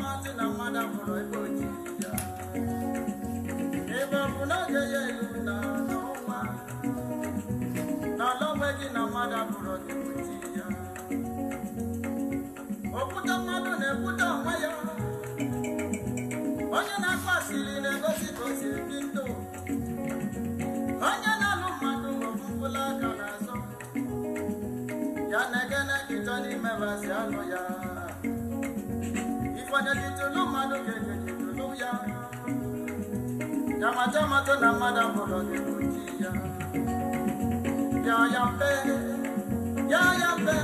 maazị na mmadụ abụrụ ebe oji ya jamajamato na mmadụ abụrụ gị ya ya ya mpe ya ya mpe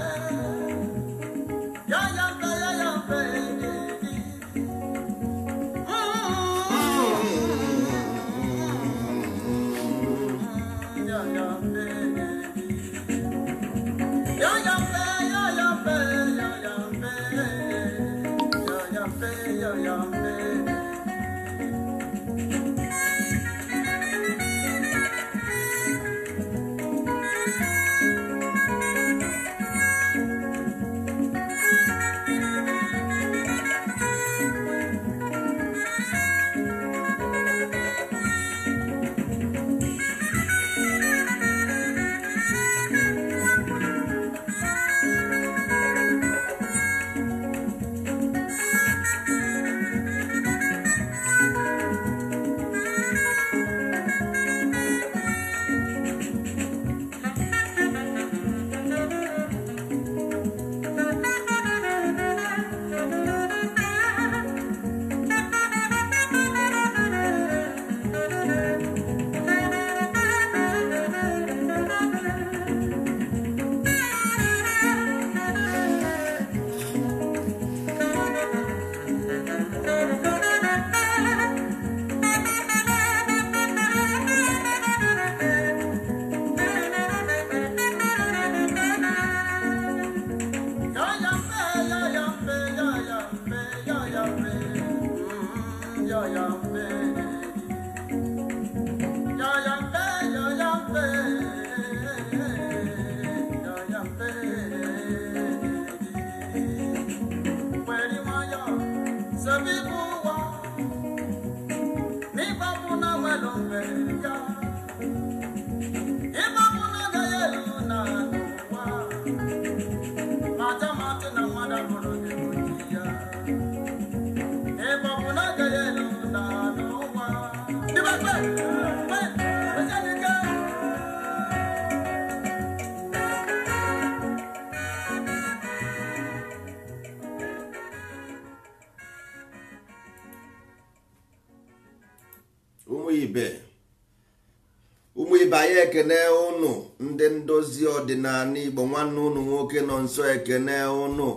nwanne ụnụ nwoke nọ nsọ ekene ụnụ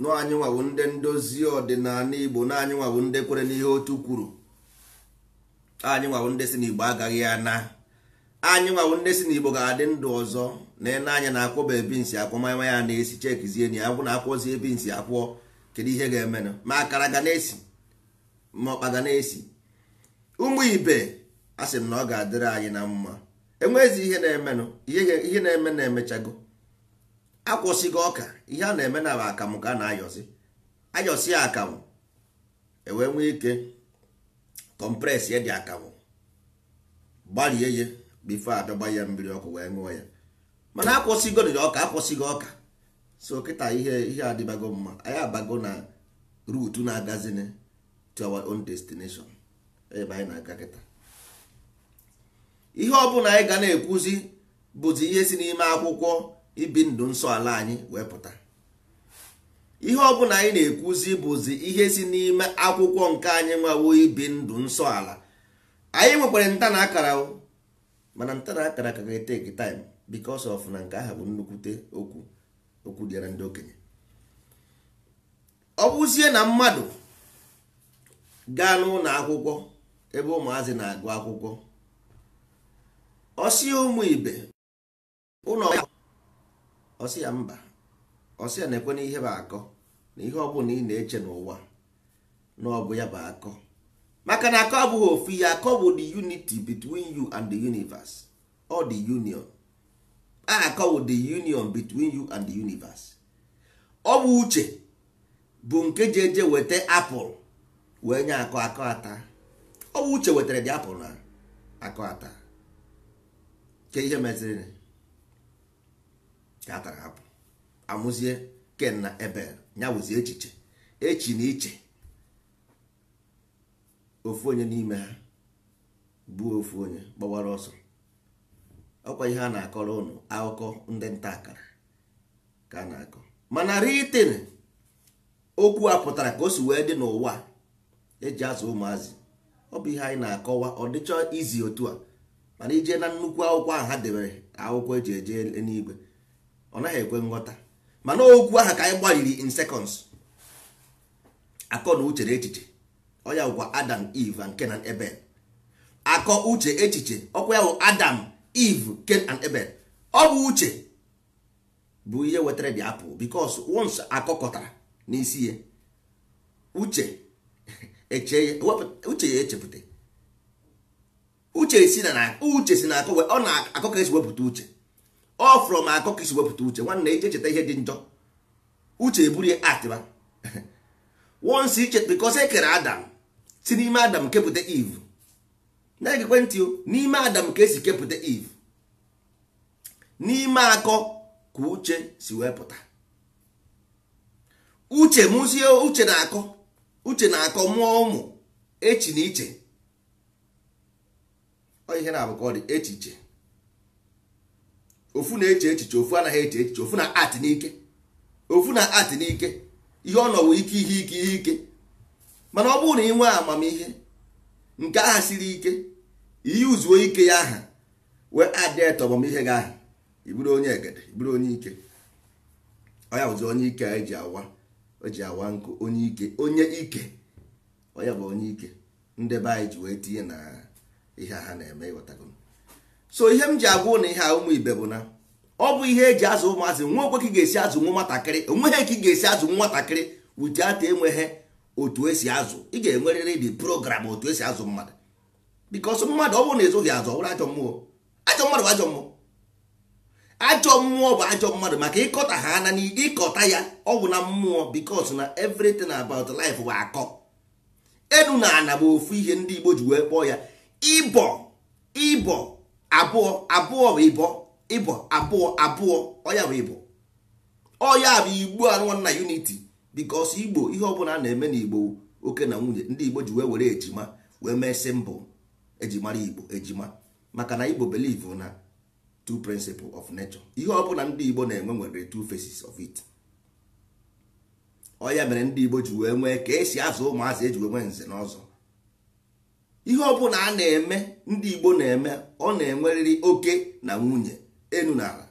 n'anyị nwabụ ndị ndozi ọdịnala igbo na anyị nwabụ ndị kwere n'ihe otu kwuru anyị nwabụ ndị si n'igbo agaghị ana anyị nwabụ ndị si n'igbo ga-adị ndụ ọzọ na ịna anya na akwọba ebi nsi akwọ manya ya na-esi chekizie na ya akwụ na akwọzi ebi nsi akwọ kedu ihe ga-emenụ ma akara ga na-esi ma ọkpa ga na-esi ụmụ ibe a sị m na ọ ga-adịrị anyị na mma enweghịzi ihe na-emenụ ihe na-eme na-emechago akwụsịghị ọka ihe a na-eme na akamụ ka a na-ayọsị ayọsi ya akamụ ewee nwee ike kọmpres ya dị akamụ gbarie ya bifo abịagba ya mmiri ọkụ wee ṅụọ ya mana akwụsịgo ọka akwụsịghị ọka so kịta ihe ihe adịbago mma anyị abago na ruutu na-agazin to our own destination ebe anyị na-aga kịta ihe ọ anyị ga na-ekwuzi bụzi ihe si n'ime akwụkwọ ibi ndụ nsọ ala anyị wee pụta ihe ọbụla anyị na-ekwuzi bụzi ihe si n'ime akwụkwọ nke anyị nwawo ibi ndụ nsọ ala anyị nwekwara nta na akara mana nta na akara ka ga-eteki taịm bikos of na nke ahụ bụ nnukwute okwu okwu dịara ndị okenye ọ bụzie na mmadụ gaa n'ụlọ akwụkwọ ebe ụmụazị na-agụ akwụkwọ ọsi ụmụ ibe ụlọ ọsị ya mba ọsị ya na-ekwe n'ihe bụ akọ na ihe ọ bụla ị na-eche n'ụwa na ọ bụ ya bụ akọ maka na akọ abụghị ofu ihe akọ bụ the unity between you and the universe or the union akọ bụ the union between you and the universe ọ bụ uche bụ nke ji eje weta apụl wee nye akọ akọ ata ọ bụ uche wetara dị apụl na akọ ata ke ihe meziri ha hapụ amụzie ken na ebel ya echiche echi na iche ofu onye n'ime ha bụ ofu onye gbawara ọsọ ọkwa ihe a na-akọrọ ụnụ akụkọ ndị nta akara ka a na-akọ mana ritin okwu a pụtara ka o si wee dị n'ụwa eji azụ ụmụazị ọ bụ ihe anyị na-akọwa ọ dịchọ izi otu a mana ije na nnukwu akwụkwọ ahụ ha debere akwụkwọ eji eje eluigwe ọ naghị ekwe nghọta mana okwu aha ka anyị gbaliri in seconds akọ na uche na echiche ọ ya gwa adam eve and ken and ebel akọ uche echiche ọkwa ya bụ adam eve ken and ebel ọ bụ uche bụ ihe wetara dị apụl because once akọkọtara n'isi ya uche ya uche ya echepụta uche si na uche si na akọ ọ na-akọ ka esi wepụta uche ọ from akọ ka isi wepụta uche nwanne eje cheta ihe dị njọ uche eburie atịba once iche because e kere adam si n'ime adam kepụta iv na-egekwe ntị o n'ime adam ka esi kepụta eve n'ime akọ ka uche si wepụta uche mụzie uche na-akọ uche na-akọ mụọ ụmụ echi na iche ọ ihe na dị echiche ofu na-eche echiche ofu anaghị eche echiche ofu na art n'ike ofu na art n'ike ihe ọ nọwụ ike ihe ike ihe ike mana ọ bụrụ na ị nwee amamihe nke aha siri ike ihe uzuo ike ya aha wee adịet ihe gị aha iburu onye egede iburu onye ike ọya bụzi onye ike eji awa eji awa nkụ onye ike onye ike ọya bụ onye ike ndị be anyị ji wee tinye na ihe ha na-eme ịghọtago so ihe m ji agwa na ihe a ụmụ ibe bụ na ọ bụ ihe eji azụ ụmụazị nwa okwe ka ị ga-esi azụ nwa nwatakịrị onweghị ka ị ga-esi azụ nwatakịrị ujiata enweghị otu esi azụ ị ga-enwerịrị dị program otu esi azụ mmadụ bikos mmadụ ọ bụrụ na ezoghị azụ ọ bụrụ ajọ mmụọ ajọ mmadụ bụ ajọ mmụọ ajọ mmụọ bụ ajọ mmadụ maka ịkọta ha na ịkọta ya ọgwụ na mmụọ bikos na everything abat life bụ akọ enu na ana bụ ofu ihe ndị Igbo ji wee kpọọ ya ịbọ ịbọ abụọ abụọ bụ ịbọ ịbọ abụọ abụọ ọya bụ ịbọ ọya bụ igbo anụnwa na unity igbo ihe ọbụla a na-eme n'igbo oke na nwunye ndị igbo ji wee were ejima wee mee simbụ ejimara igbo ejima maka na igbo believe na t principle of nature ihe ọbụla ndị igbo na-enwe nwere t faces of it ọya mere ndị igbo ji wee nwee ka esi azụ ụmụazị eji wee nwee nze n'ọzọ. ihe ọbụla a na-eme ndị Igbo na-eme ọ na-enwerịrị oke na nwunye enu na ala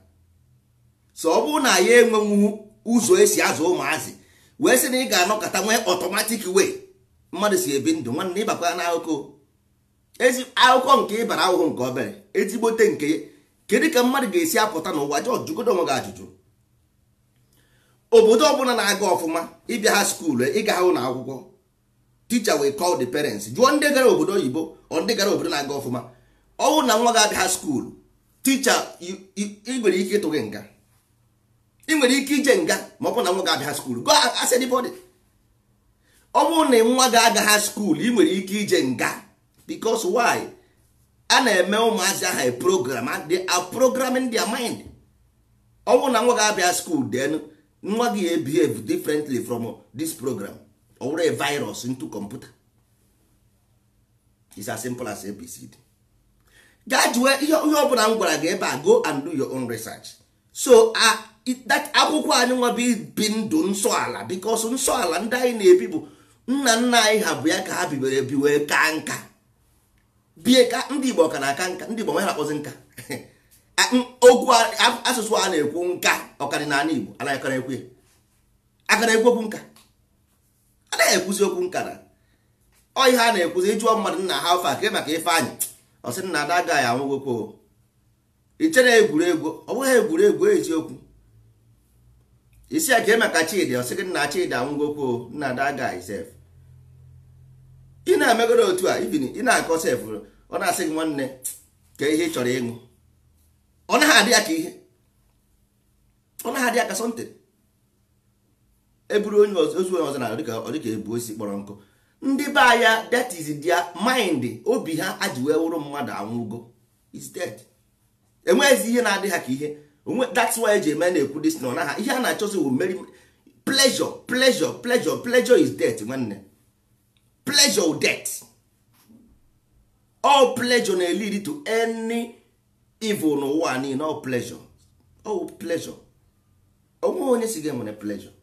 so ọ bụrụ na ya enwenwu ụzọ esi azụ ụmụazị wee sị na ị ga-anọkọta nwee ọtọmatik wee mmadụ si ebi ndụ nwanne ịbakwa ya n'akụkụ ezi akụkọ nke ịbara ahụhụ nke obere ezigbote nke ya kedu ka mmadụ ga-esi apụta n'ụwa jọọ jụgodo onwe gị ajụjụ obodo ọbụla na-aga ọfụma ịbịa ha skuulu ịga ha ụlọ akwụkwọ teacher will call the parents jụọ ndị gara obodo oyibo ọ ndị gara obodo na-aga ọfụma ọnwụ na nwa ga-abịa ha skuulu ticha ị nwere ike ịtụ gị nga ị nwere ike ije nga ma ọ bụrụ na nwa ga-abịa ha skuulu go ask anybody ọ bụrụ na nwa ga ha skuulu ị nwere ike ije nga because why a na-eme ụmụazị aha program they are programming their mind ọ bụrụ na nwa ga-abịa skuulu then nwa gị ebehave differently from this program owere virus into computer is as simple as abcd gaa jụọ ihe ọbụla m gwara gị ebe a go and do your own research so uh, that akwụkwọ anyị nwa bi ndụ nsọ ala because nsọ ala ndị anyị na-ebi bụ nna nna anyị ha bụ ya ka ha bibere ebi wee ka nka bie ka ndị igbo ka na-aka nka ndị igbo nwe ha na-akpọzi nka okwu asụsụ a na-ekwu nka ọkadịnala igbo anaghị akara ekwu ya akara ekwu okwu nka a na-ekwuzi okwu nkara ọ ihe a na-ekwuzi ịjụọ mmadụ nna ha ofe akịrị maka Ifeanyị ọ sị na ada agaghị anwụgokwo ichere egwuregwu ọ bụghị egwuregwu eziokwu isi ya kee maka Chidi ọ sị gị nna Chidi anwụgokwo nna ada agaghị sef ị na-emegoro otu a ibini ị na-akọ sef ọ na-asị gị nwanne ka ihe ị chọrọ ịṅụ ọ naghị adị ya ka ihe ọ naghị adị ya ka sọntịn eburu onye ozi onye ọzọ na ọdịka ebu osi kpọrọ nkụ ndị be anya that is their mind obi ha aji wee wụrụ mmadụ anwụgo is dead enweghịzi ihe na-adị ha ka ihe that's why eji eme na-ekwu dis na ha ihe a na-achọzi wụ meri pleasure pleasure pleasure pleasure is death nwanne pleasure death all pleasure na-eliri to any evil n'ụwa niile all pleasure all pleasure onwe onye si ga enwere pleasure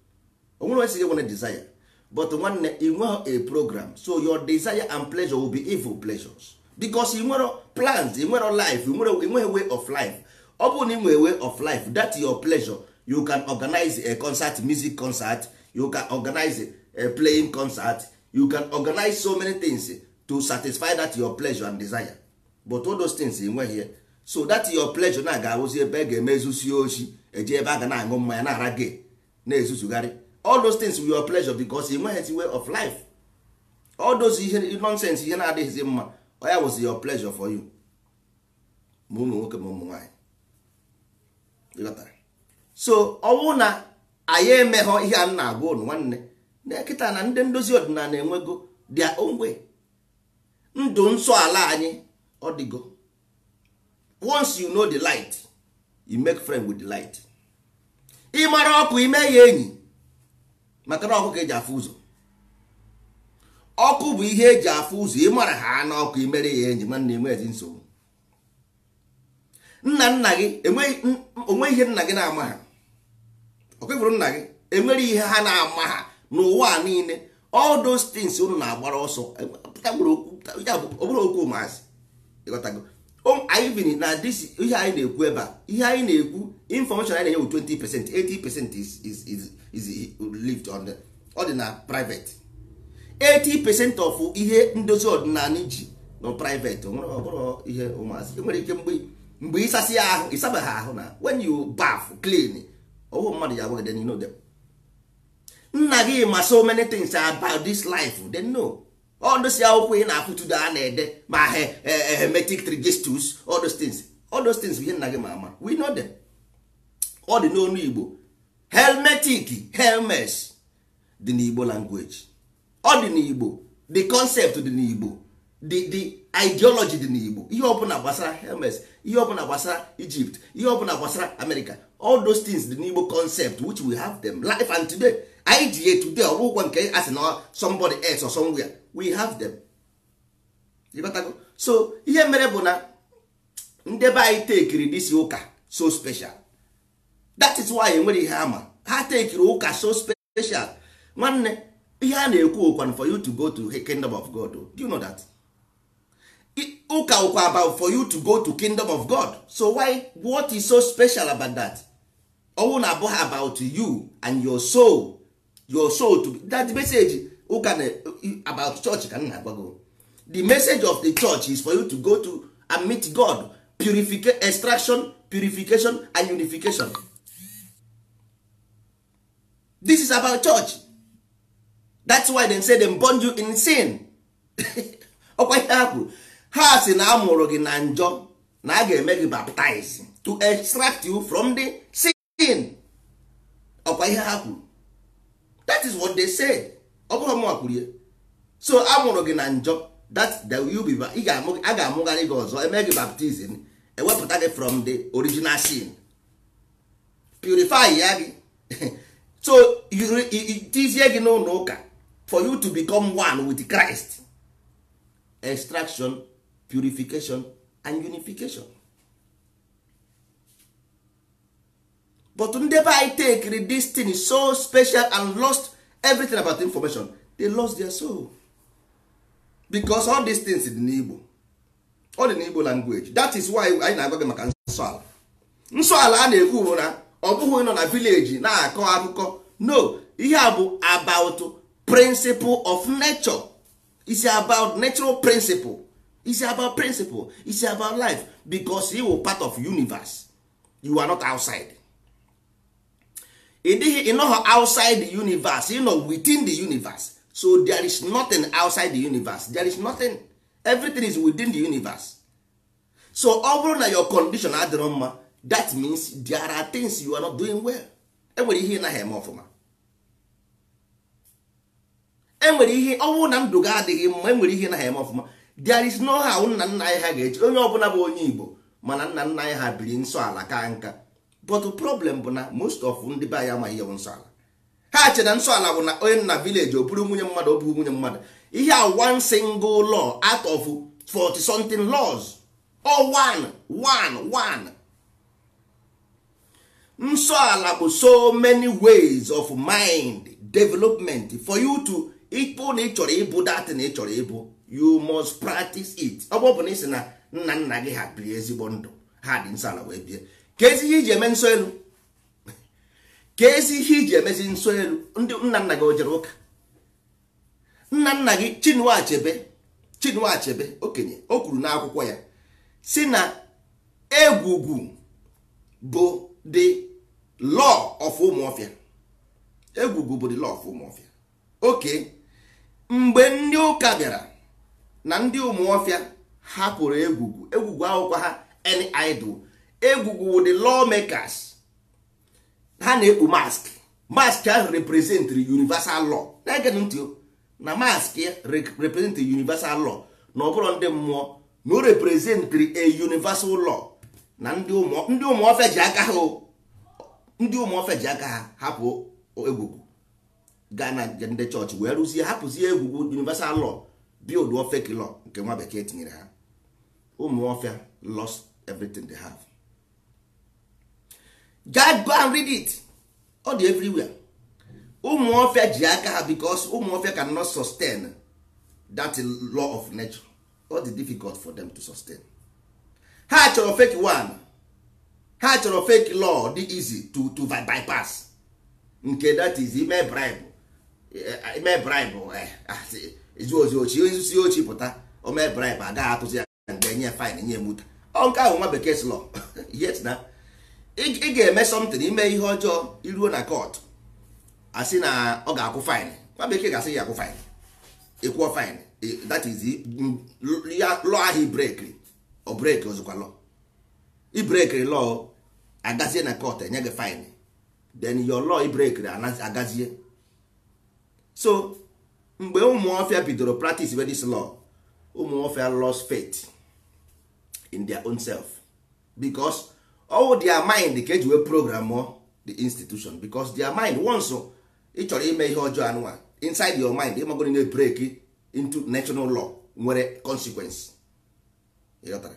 onwere onye sighị nwere desire but nwanne ị a program so your desire and pleasure will be evil pleasures because ị nwere plans ị nwere life ị nwere way of life ọ bụrụ na way of life that your pleasure you can organize a concert music concert you can organize a playing concert you can organize so many things to satisfy that your pleasure and desire but all those things ị here. so that your pleasure na ga awụzi ebe e ga-eme ezusi oshi eji ebe a ga na-aṅụ mmanya na-ara gị na-ezuzugharị all those things were your pleasure because ị nweghịzi way of life all those ihe nonsense ihe na-adịghịzi mma oya was your pleasure for you ma ụmụ nwoke ma ụmụ nwaanyị so ọnwụ na anyị emeghọ ihe a na-agwa ụnụ nwanne na kịta na ndị ndozi ọdịnala enwego their own way ndụ nsọ ala anyị ọ dịgo once you know the light you make friend with the light ị ọkụ ime ya enyi maka na ọkụ ka eji afụ ụzọ ọkụ bụ ihe eji afụ ụzọ ị mara ha n'ọkụ imere ya enyi nwanne enwe ezi nsogbu nna nna gị onwe ihe nna gị na-ama ha ọkwefuru nna gị enwere ihe ha na-ama ha n'ụwa niile all those things unu na-agbara ọsọ ọbụrụ e okwu maazị ịghọtago anyị na this ihe anyị na-ekwu ebe a ihe anyị na-ekwu information anyị na-enye bụ 20 percent 80 percent is is is lived on the ọ dị na private 80 percent of ihe ndozi ọdịnala iji nọ private ọbụrụ ihe ụmụazị nwere ike mgbe mgbe ịsasị ya ahụ ịsabeghị ahụ na when you bath clean ọwụ mmadụ ya agwaghị you know them nna gị ma so many things about this life they know all those akwụkwọ ị na-afụtụdo a na-ede ma hermetic trigistus all those things all those things bụ ihe nna gị ma ama we know them ọ dị n'onu Igbo helmetic helmes dị n'igbo language ọ dị n'igbo the concept dị n'igbo the the ideology dị n'igbo ihe ọbụla gbasara helmes ihe ọbụla gbasara egypt ihe ọbụla gbasara america all those things dị n'igbo concept which we have them life and today idea today ọ bụ nke asị na somebody else or somewhere we have them ịgotago so ihe mere bụ na ndị be anyị tekiri disi ụka so special that is why enwere ihe ama ha tekiri ụka so special nwanne ihe a na-ekwu okwan for you to go to kingdom of god do you know that ụka ụkwa about for you to go to kingdom of god so why what is so special about that ọnwụ na abụghị about you and your soul your soul to be, that message ụka na about church ka m na-agwago the message of the church is for you to go to and meet god purification extraction purification and unification this is about church that's why they say them born you in sin ọkwa ihe ha kwuru ha si na amụrụ gị na njọ na a ga-eme gị baptize to extract you from the sin ọkwa ihe ha kwuru that is what they say ọ bụrụ mụnwa kwuru ya so amụrụ gị na njọ that the you be a ga-amụgharị gị ọzọ eme gị baptizim ewepụta gị from the original sin purify ya gị so tizie gị n'ụlọ ụka for you to become one with Christ extraction purification and unification but ndị be anyị read this thing so special and lost everything about the information they lost their soul because all these things dị n'Igbo all dị n'Igbo language that is why anyị na-agwa gị maka nsọala. Nsọala a na-ekwu na ọ bụghị nọ na vileji na-akọ akụkọ no ihe a bụ about principle of nature is about natural principle is about principle is about life because he were part of universe you are not outside ịdịghị ịnọghọ outside the universe you know within the universe so there is nothing outside the universe there is nothing everything is within the universe so ọ bụrụ na your condition adịrọ mma that means there are things you are not doing well enwere ihe ịnaghị eme ọfụma enwere ihe ọnwụ na ndụ ga adịghị mma enwere ihe ịnaghị eme ọfụma there is no how nna nna anyị ha ga-eji onye ọbụla bụ onye igbo mana nna nna anyị ha biri nsọ ala ka nka but problem bụ na most of ndị be anyị amaghị ihe bụ nsọ ala ha chere na nsọ ala bụ na onye nna village o nwunye mmadụ o nwunye mmadụ ihe a one single law out of 40 something laws or one one one nsọ ala bụ so many ways of mind development for you to ịkpụ na ị chọrọ ịbụ dat na ị chọrọ ịbụ you must practice it ọ bụ na ị na nna nna gị ha biri ezigbo ndụ ha dị nsọ ala wee bie ka ezi ihe iji eme nsọ elu ka ezi ihe iji emezi nsọ elu ndị nna nna gị o jere ụka nna nna gị Chinua Achebe Achebe okenye o kwuru n'akwụkwọ ya si na egwugwu bụ dị law of ụmụọfịa egwugwu bụ law of ụmụọfịa oke mgbe ndị ụka bịara na ndị ụmụọfịa hapụrụ egwugwu egwugwu akwụkwọ ha any idol egwugwu the law makers ha na-ekpu mask mask ahụ represent universal law na-ege ntị na mask represent universal law na ọbụrụ ndị mmụọ na o represent a universal law na ndị ụmụọfịa ji aka ha ndị ụmụ ofe ji aka ha hapụ egwugwu gaa na ndị chọọchị wee rụzie hapụzie egwugwu universal law olu fake law nke nwa bekee tinyere ha ụmụ lost everything they have God go and read it ọ dị everywhere ụmụ ji aka ha because ụmụ ofia cannot sustain that law of nature ọ dị difficult for them to sustain ha chọrọ fake one ha chọrọ fake law dị izi to to bypass nke that is ime bribe eh, ime bribe eh, ah, ezu ozi ochi ozi ochi pụta ome bribe agaghị atụzi ya mgbe nye fine nye muta ọ nke ahụ nwa bekee law yes na ị ga-eme something ime ihe ọjọọ iruo na court asị na ọ ga-akwụ fine nwa bekee ga-asị ya akwụ fine ịkwụọ fine that is ya law ahụ break ọ break ozikwa law i break agazie na court enye gị fine then your law break agazie so mgbe ụmụọfịa bidoro practice with this law ụmụọfịa lost faith in their own self because all their mind ka eji wee program the institution because their mind once ị chọrọ ime ihe ọjọọ anụwa inside your mind ịmagoro na e break into national law nwere consequence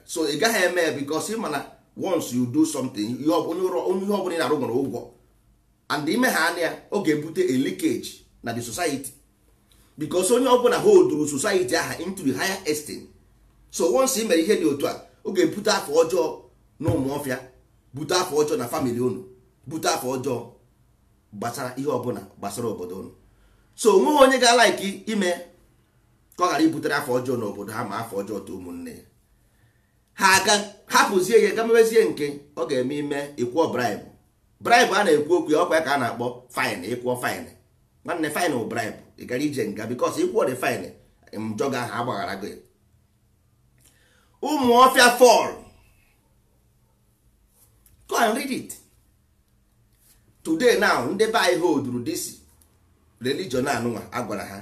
so ị gaghị eme ya ị mana once you do something ihe ọbụla ị na-arụ nwere ụgwọ and ime ha anya ọ ga-ebute a leakage na the society because onye ọbụla holduru society aha into the higher extent so once ị mere ihe dị otu a ọ ga-ebute afọ ọjọọ na ụmụọfịa bute afọ ọjọọ na family unu bute afọ ọjọọ gbasara ihe ọbụla gbasara obodo unu so onweghị onye ga-alaiki ime ka ọ ghara ibutere afọ ọjọọ obodo ha ma afọ ọjọọ too ụmụnne ya ha aga hapụzie ya gamebezie nke ọ ga-eme ime ịkwụọ braịbụ braịbụ a na-ekwu okwu ya ọkwa ya ka a na-akpọ faịn ịkwụọ faịn nwanne faịn bụ braịbụ ị gara ije nga bikos ịkwụọ dị faịn njọ ga aha agbaghara gị ụmụ ọfịa fọl go and read it today now ndị be anyị holdru this religion anụnwa agwara ha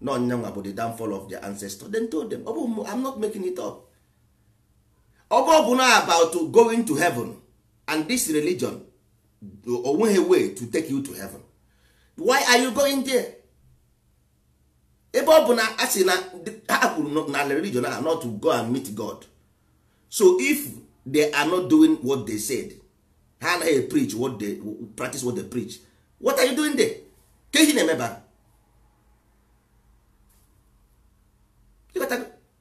na ọnyanwa bụ the downfall of the ancestor dem told them ọ bụ am not making it up ọgọ bụ na about going to heaven and this religion onweghị way to take you to heaven why are you going there ebe ọ bụ na a sị na ha kwuru na religion na not to go and meet god so if they are not doing what they said ha anaghị preach what they practice what they preach what are you doing there ka ihe na-emeba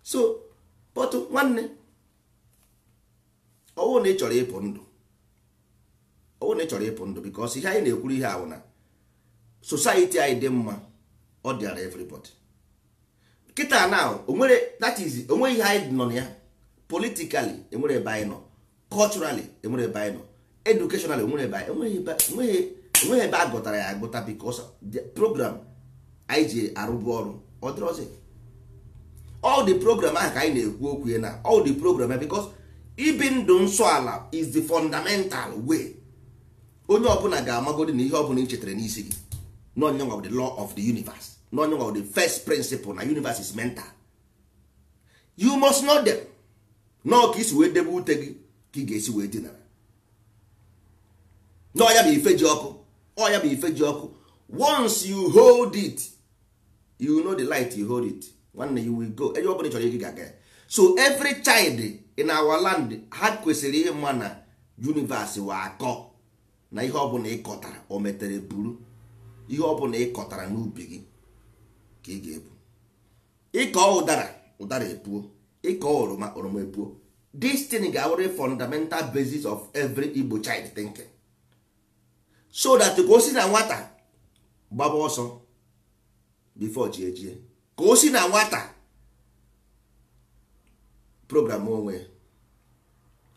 so but nwanne ọwụ na ị chọrọ ịpụ ndụ ọwụ na ị chọrọ ịpụ ndụ bikos ihe anyị na-ekwuru ihe awụ na society anyị dị mma ọ dịara everybody kịta na onwere that is onwe ihe anyị nọ na ya politically enwere ebe anyị nọ culturally enwere ebe anyị nọ educationally enwere ebe anyị enweghị e e ebe a gụtara ya agụta bikos program anyị ji arụbu ọrụ ọ dịrọzi all the program ahụ ka anyị na-ekwu okwu ya na all the program ya bikos ibi ndụ nsọ ala is the fundamental way onye ọbụla ga-amagodi na ihe ọbụla ị chetara n'isi gị n'onyenwa the law of the universe n'onyenwa the first principle na universe is mental you must know them nọọ ka isi wee debe ute gị ka ị ga-esi wee dinara n'ọya bụ ife ji ọkụ ọya bụ ife ji ọkụ once you hold it you know the light you hold it nwanne you will go enye ọbụla ị chọrọ ị ga-aga ya so every child in our land ha kwesịrị ihe mma na universe wa akọ na ihe ọbụla ịkọtara o metere buru ihe ọbụla ịkọtara n'ubi gị ka ị ga-ebu ịkọ ụdara ụdara epuo ịkọ oroma oroma epuo this thing ga-awụrụ fundamental basis of every Igbo child thinking so that ka o si na nwata gbaba ọsọ before chi ka o si na nwata program onwe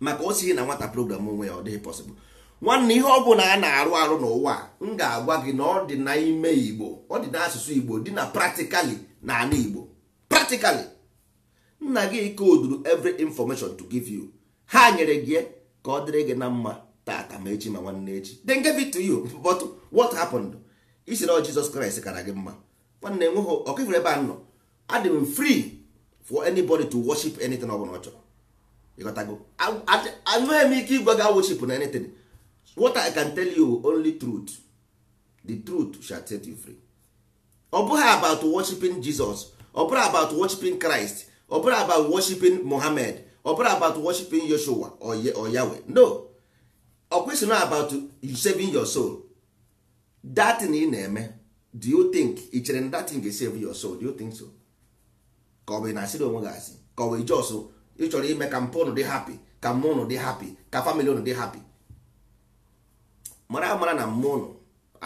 maka o sighi na nwata program onwe ya ọ dịghị pọsịbụl nwanne ihe ọ bụla a na-arụ arụ n'ụwa m ga-agwa gị na ọ dị n'ime igbo ọ dị n'asụsụ igbo dị na praktikali na ala igbo praktikali nna gị koduru every information to giv you ha nyere gị ka ọ dịrị gị na mma tata ma echi ma nwanne echi then give it to you but what isi na jizọs kraịst kara gị mma nwanne nweghị ọkịfụrụ ebe a nọ adị m frii. for anybody to worship anything ọ bụla ọ chọrọ ịghọtago anweghị m ike ịgwa gị worship na anything what i can tell you only truth the truth shall set you free ọ bụghị about worshiping jesus ọ bụghị about worshiping christ ọ bụghị about worshiping mohammed ọ bụghị about worshiping yoshua or yahweh no ọ kwesịrị about you saving your soul that thing ị na-eme do you think ichere na that thing ga save your soul do you think so ka ọ bụ na-asịrị onwe gị asị ka ọ bụ jos ị chọrọ ime ka mpụ ụnụ dị hapi ka mmụọ ụnụ dị hapi ka famili ụnụ dị hapi mara amara na mmụọ ụnụ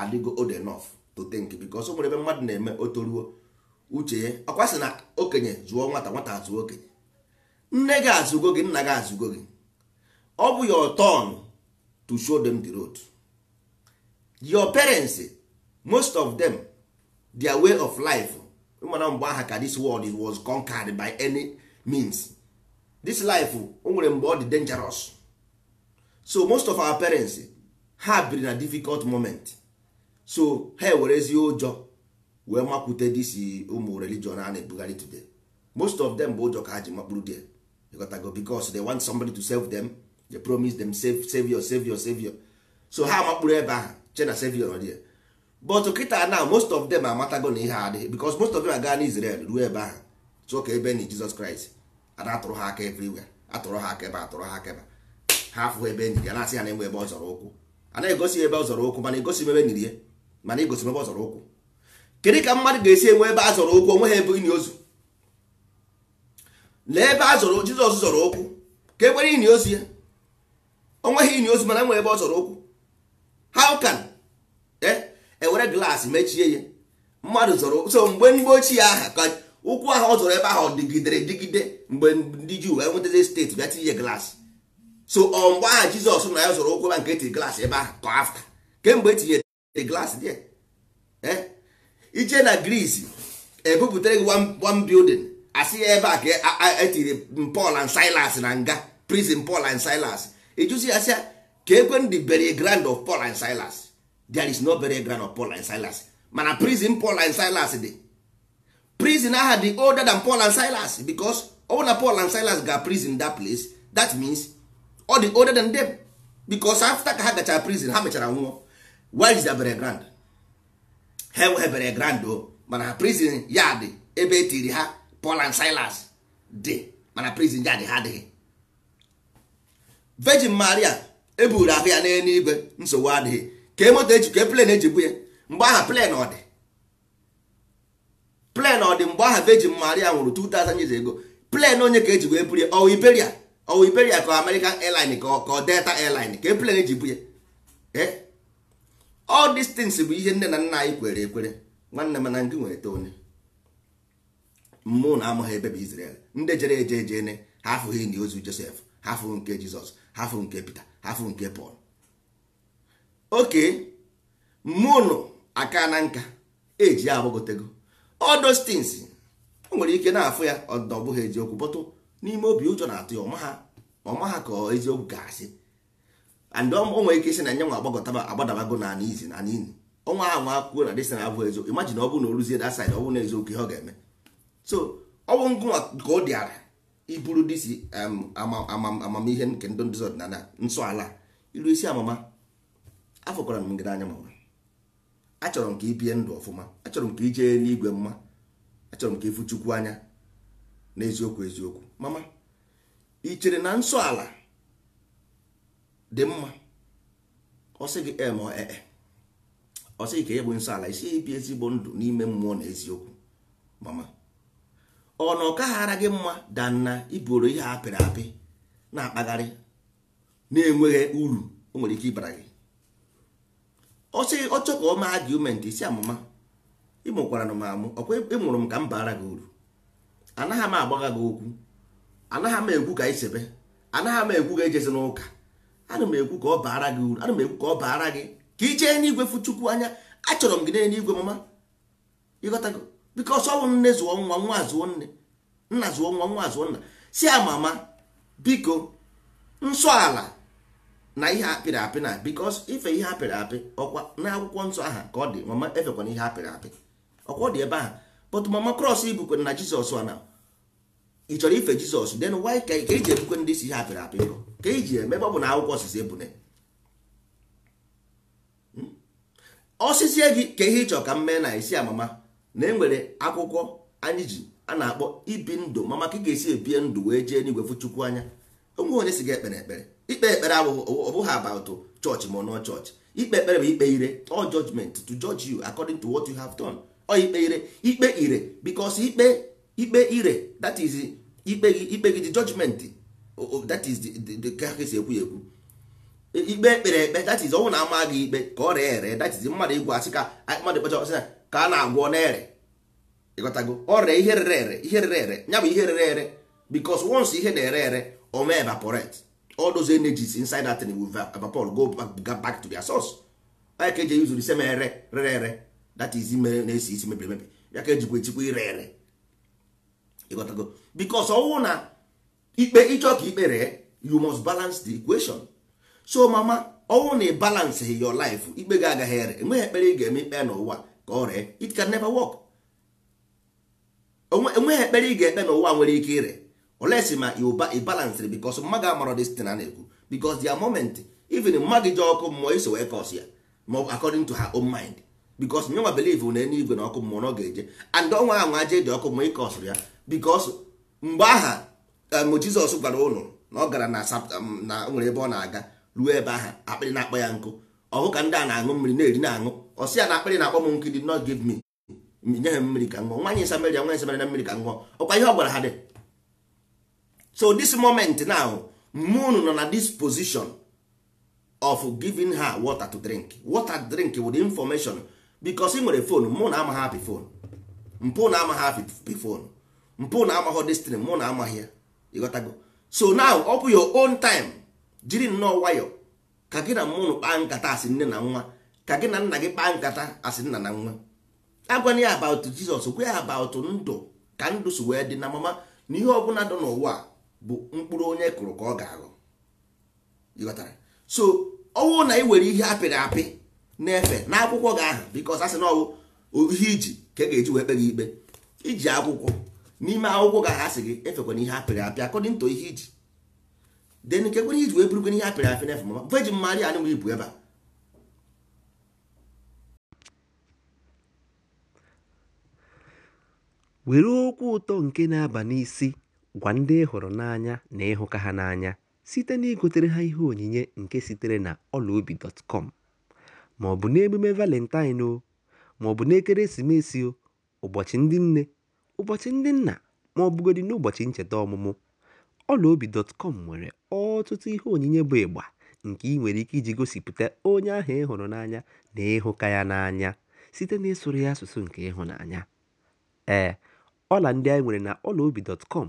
adịgo old enough to think because nwere ebe mmadụ na-eme otoruo toruo uche ya ọkwa sị na okenye zụọ nwata nwata azụ okenye nne gị azụgo gị nna gị azụgo gị ọ bụ your turn to show them the road your parents most of them their way of life mana mgbe aha ka this world was conquered by any means this life o nwere mgbe ọ dị dangerous so most of our parents ha biri na difficult moment so ha ezi ụjọ wee makwute dis ụmụ religion a na-ebugharị today most of them bụ ụjọ ka ha ji makpụrụ there gotago because they want somebody to save them they promise them save, savior savior savior so ha makpụrụ ebe ha che na savior nọ there but kịta na most of them amatago na ihe adịghị because most of them aga na Israel ruo ebe ahụ tụọ ka ebe na Jizọs Kraịst ada atụrụ ha aka everywhere atụrụ ha aka ebe atụrụ ha aka ebe ha afụghị ebe enyi ya na-asị ha na-enwe ebe ọ ụkwụ a na-egosi ebe ọ zọrọ ụkwụ mana egosi ebe niri ya mana egosi ebe ọ ụkwụ kedu ka mmadụ ga-esi enwe ebe a zọrọ ụkwụ ha ebe ini ozu lee ebe a zọrọ Jizọs zọrọ ụkwụ ka ekwere ini ozu ya onweghị ini ozu mana enwe ebe ọ zọrọ ụkwụ how can ewere glaasị mechie ya mmadụ zọrọ so mgbe mgbe ochie aha ka ụkwụ ahụ ọ zọrọ ebe ahụ dịgidere dịgide mgbe ndị juu wee steeti bịa tinye glaasị so ọ aha jizọs na ya zọrọ ụkwụ ebe nke etiri glaasị ebe ahụ afta kemgbe etinyere glaasị dị eh, ije na gris ebupụtara gị one building asị ya ebe a ka etiri e Paul and Silas na nga prison Paul and Silas ịjụzi ya sịa ka ekwe ndị bury grand of Paul and Silas there is no burial ground of Paul and Silas mana prison Paul and Silas dị prison aha dị older than Paul and Silas because older na Paul and Silas ga prison that place that means ọ dị older than them because after ka ha gachara prison ha mechara nwụọ where is their burial ground ha enweghị burial ground o mana prison ya dị ebe tiri ha Paul and Silas dị mana prison ya dị ha dịghị. Virgin Maria eburu ahụ ya n'eluigwe nsogbu adịghị ka e moto eji ka e plen eji ya mgbe aha plen ọ dị plen ọ dị mgbe aha Virgin Maria nwụrụ 2000 years ago plen onye ka eji wee buru ya ọwụ Iberia ọwụ Iberia ka American airline ka ọ Delta airline ka e plen eji bu ya all things bụ ihe nne na nna anyị kwere ekwere nwanne m na ngị nwere onye mmụọ na amaghị ebe bụ Israel ndị jere eje ejene ha afụghị enyi ozu Joseph ha afụghị nke Jizọs ha nke Peter ha nke Paul oke mụnụ aka na nka eji ya agbagotego all those o nwere ike na-afụ ya ọ bụghị eziokwu bọtụ n'ime obi ụjọ na-atụ ya ọma ha ka eziokwu ga-asị and o nwere ike isi na nye nwa agbagọtaba agbadabago na ana izi na ana ọnwa ahụ nwa akwụkwọ na dịsị na abụ eziokwu imajin ọ bụrụ na o ruzie that side ọ na eziokwu ihe ọ ga-eme so ọ bụ ka ọ dịara iburu disi um, amamihe nke ndị ọdịnala nsọ ala ilu isi amama afọkwara m gị n'anya mama achọrọ m ka ị bie ndụ ọfụma achọrọ m ka ị jee n'igwe mma achọrọ m ka ịfụ chukwu anya n'eziokwu eziokwu mama ị chere na nsọ ala dị mma ọ gị em ee e, e. ka ị e bụ nsọ ala isi ibi ezigbo ndụ n'ime mmụọ na eziokwu mama ọ na ọ kaghara gị mma danna iburo ihe apịrị apị na-akpagharị na-enweghị uru o nwere ike ịbara gị ọ sị ọchọ ka ọ ma argument si amụma ịmụkwara na m amụ ọkwa ịmụrụ m ka m baara gị uru anaghị m agbagha gị okwu anaghị m ekwu ka isebe anaghị m ekwu ka ejezi n'ụka ana m ekwu ka ọ baara gị uru ana m ekwu ka ọ baara gị ka ị jee n'igwe fuchukwu anya achọrọ m gị n'igwe mama ịghọtago biko ọsọ bụ nne zụọ nwa nwa azụọ nne nna zụọ nwa nwa azụọ nna si amama biko nsọ ala na ihe apịrị apị na bikos ife ihe apịrị apị ọkwa na akwụkwọ nsọ aha ka ọ dị mama efekwana ihe apịrị apị ọkwa ọ dị ebe ahụ but mama krọs ibukwe na jizọs na. ị chọrọ ife jizọs den why ka ị ji ebukwe ndị si ihe apịrị apị nrọ ka ị eme ebe ọ bụ na akwụkwọ osisi ebune hmm? osisi e gị ka ihe ịchọ ka m mee na isi amama na enwere akwụkwọ anyị ji a na-akpọ ibi ndụ mama ka ị ga-esi ebie ndụ wee jee n'igwe fụ chukwu anya onwe onye si gị ekpere ekpere ikpe ekpere ọbụghị about church ma nọ church ikpe ekpere bụ ikpe ire all judgment to judge you according to what you have done ọ ikpe ire ikpe ire because ikpe ikpe ire that is ikpe gị ikpe gị judgment that is the the esi ekwu ekwu ikpe ekpere ekpe that is ọnwụ na ama gị ikpe ka ọ ree ere that is mmadụ igwe asị ka mmadụ kpacha ọsị ka a na-agwọ na-ere ịghọtago ọ ree ihe rere ere ihe rere ere ya bụ ihe rere ere because once ihe na-ere ere ọ mee evaporate all those energies inside that thing will paul go back, back to their source onye ka eji use the same ere rere ere that is ime na-esi isi mebiri emebi ya ka ejikwa echikwa ire ere ịghọtago bikos ọnwụ na ikpe ịchọ ka ikpere you must balance the equation so mama ọnwụ na ịbalance your life ikpe gị agaghị ere enweghị ekpere ị ga-eme ikpe n'ụwa ka ọ ree it can never work enweghị ekpere ị ga-ekpe n'ụwa nwere ike ire unless ma ịbalansịrị bikos mmadụ amarọ destin a na-ekwu bikos dia moment even mmadụ ji ọkụ mmụọ iso wee kọs ya ma according to her own mind bikos nyenwa belive na eluigwe na ọkụ mmụọ na ọ ga-eje and ọnwa ahụ aje eji ọkụ mmụọ ịkọsụrụ ya bikos mgbe aha mụ um, jizọs gwara ụlọ na ọ gara na um, nwere ebe ọ na-aga ruo ebe aha akpịrị na-akpọ ya nkụ ọhụ ka ndị a na-aṅụ mmiri na-eri na-aṅụ ọsị ya na akpịrị na-akpọ m nkụ dị not give me nye ha mmiri ka ṅụọ nwaanyị nwaanyị na mmiri ka ọkwa ihe ọ gwara ha dị so this moment now moon nọ na this position of giving her water to drink water drink with information because ị nwere phone mụ na amaghị apị phone mpụ na amaghị hapi phone mpụ na amaghị destiny mụ na amaghị ya ịghọtago so now ọ bụ your own time jiri nnọọ nwayọ ka gị na mụnụ kpaa nkata asị nne na nwa ka gị na nna gị kpaa nkata asị nna na nwa agwana ya about Jesus gwa ya about ndụ ka ndụ si wee dị na mama na ihe ọbụla dị n'ụwa bụ mkpụrụ onye kụrụ ka ọ ga-aghọ ịghọtara so ọnwụ na ị were ihe apịrị apị na-efe n'akwụkwọ gị ahụ bikos asị na ọwụ ihe iji ka e ga-eji wee kpe gị ikpe iji akwụkwọ n'ime akwụkwọ gị ahasị asị gị efekwana ihe apịrị apị akọdịn to ihe iji den kekwere ihe iji wee burukwana ihe apịrị apị na-efe mama veji mmadụ anụghị ibu ebe a were okwu ụtọ nke na-aba n'isi Gwa ndị ị hụrụ n'anya na ịhụka ha n'anya site na igotere ha ihe onyinye nke sitere na ọlaobi.com ma ọ bụ n'emume Valentine ma ọ bụ n'ekeresimesi, ụbọchị ndị nne, ụbọchị ndị nna ma ọ bụgodị n'ụbọchị ncheta ọmụmụ, ọlaobi.com nwere ọtụtụ ihe onyinye bụ ịgba nke ị nwere ike iji gosipụta onye ahụ ị hụrụ n'anya na ịhụka ya n'anya site n'ịsụrụ ya asụsụ nke ịhụnanya. Ee, ọla ndị anyị nwere na ọlaobi.com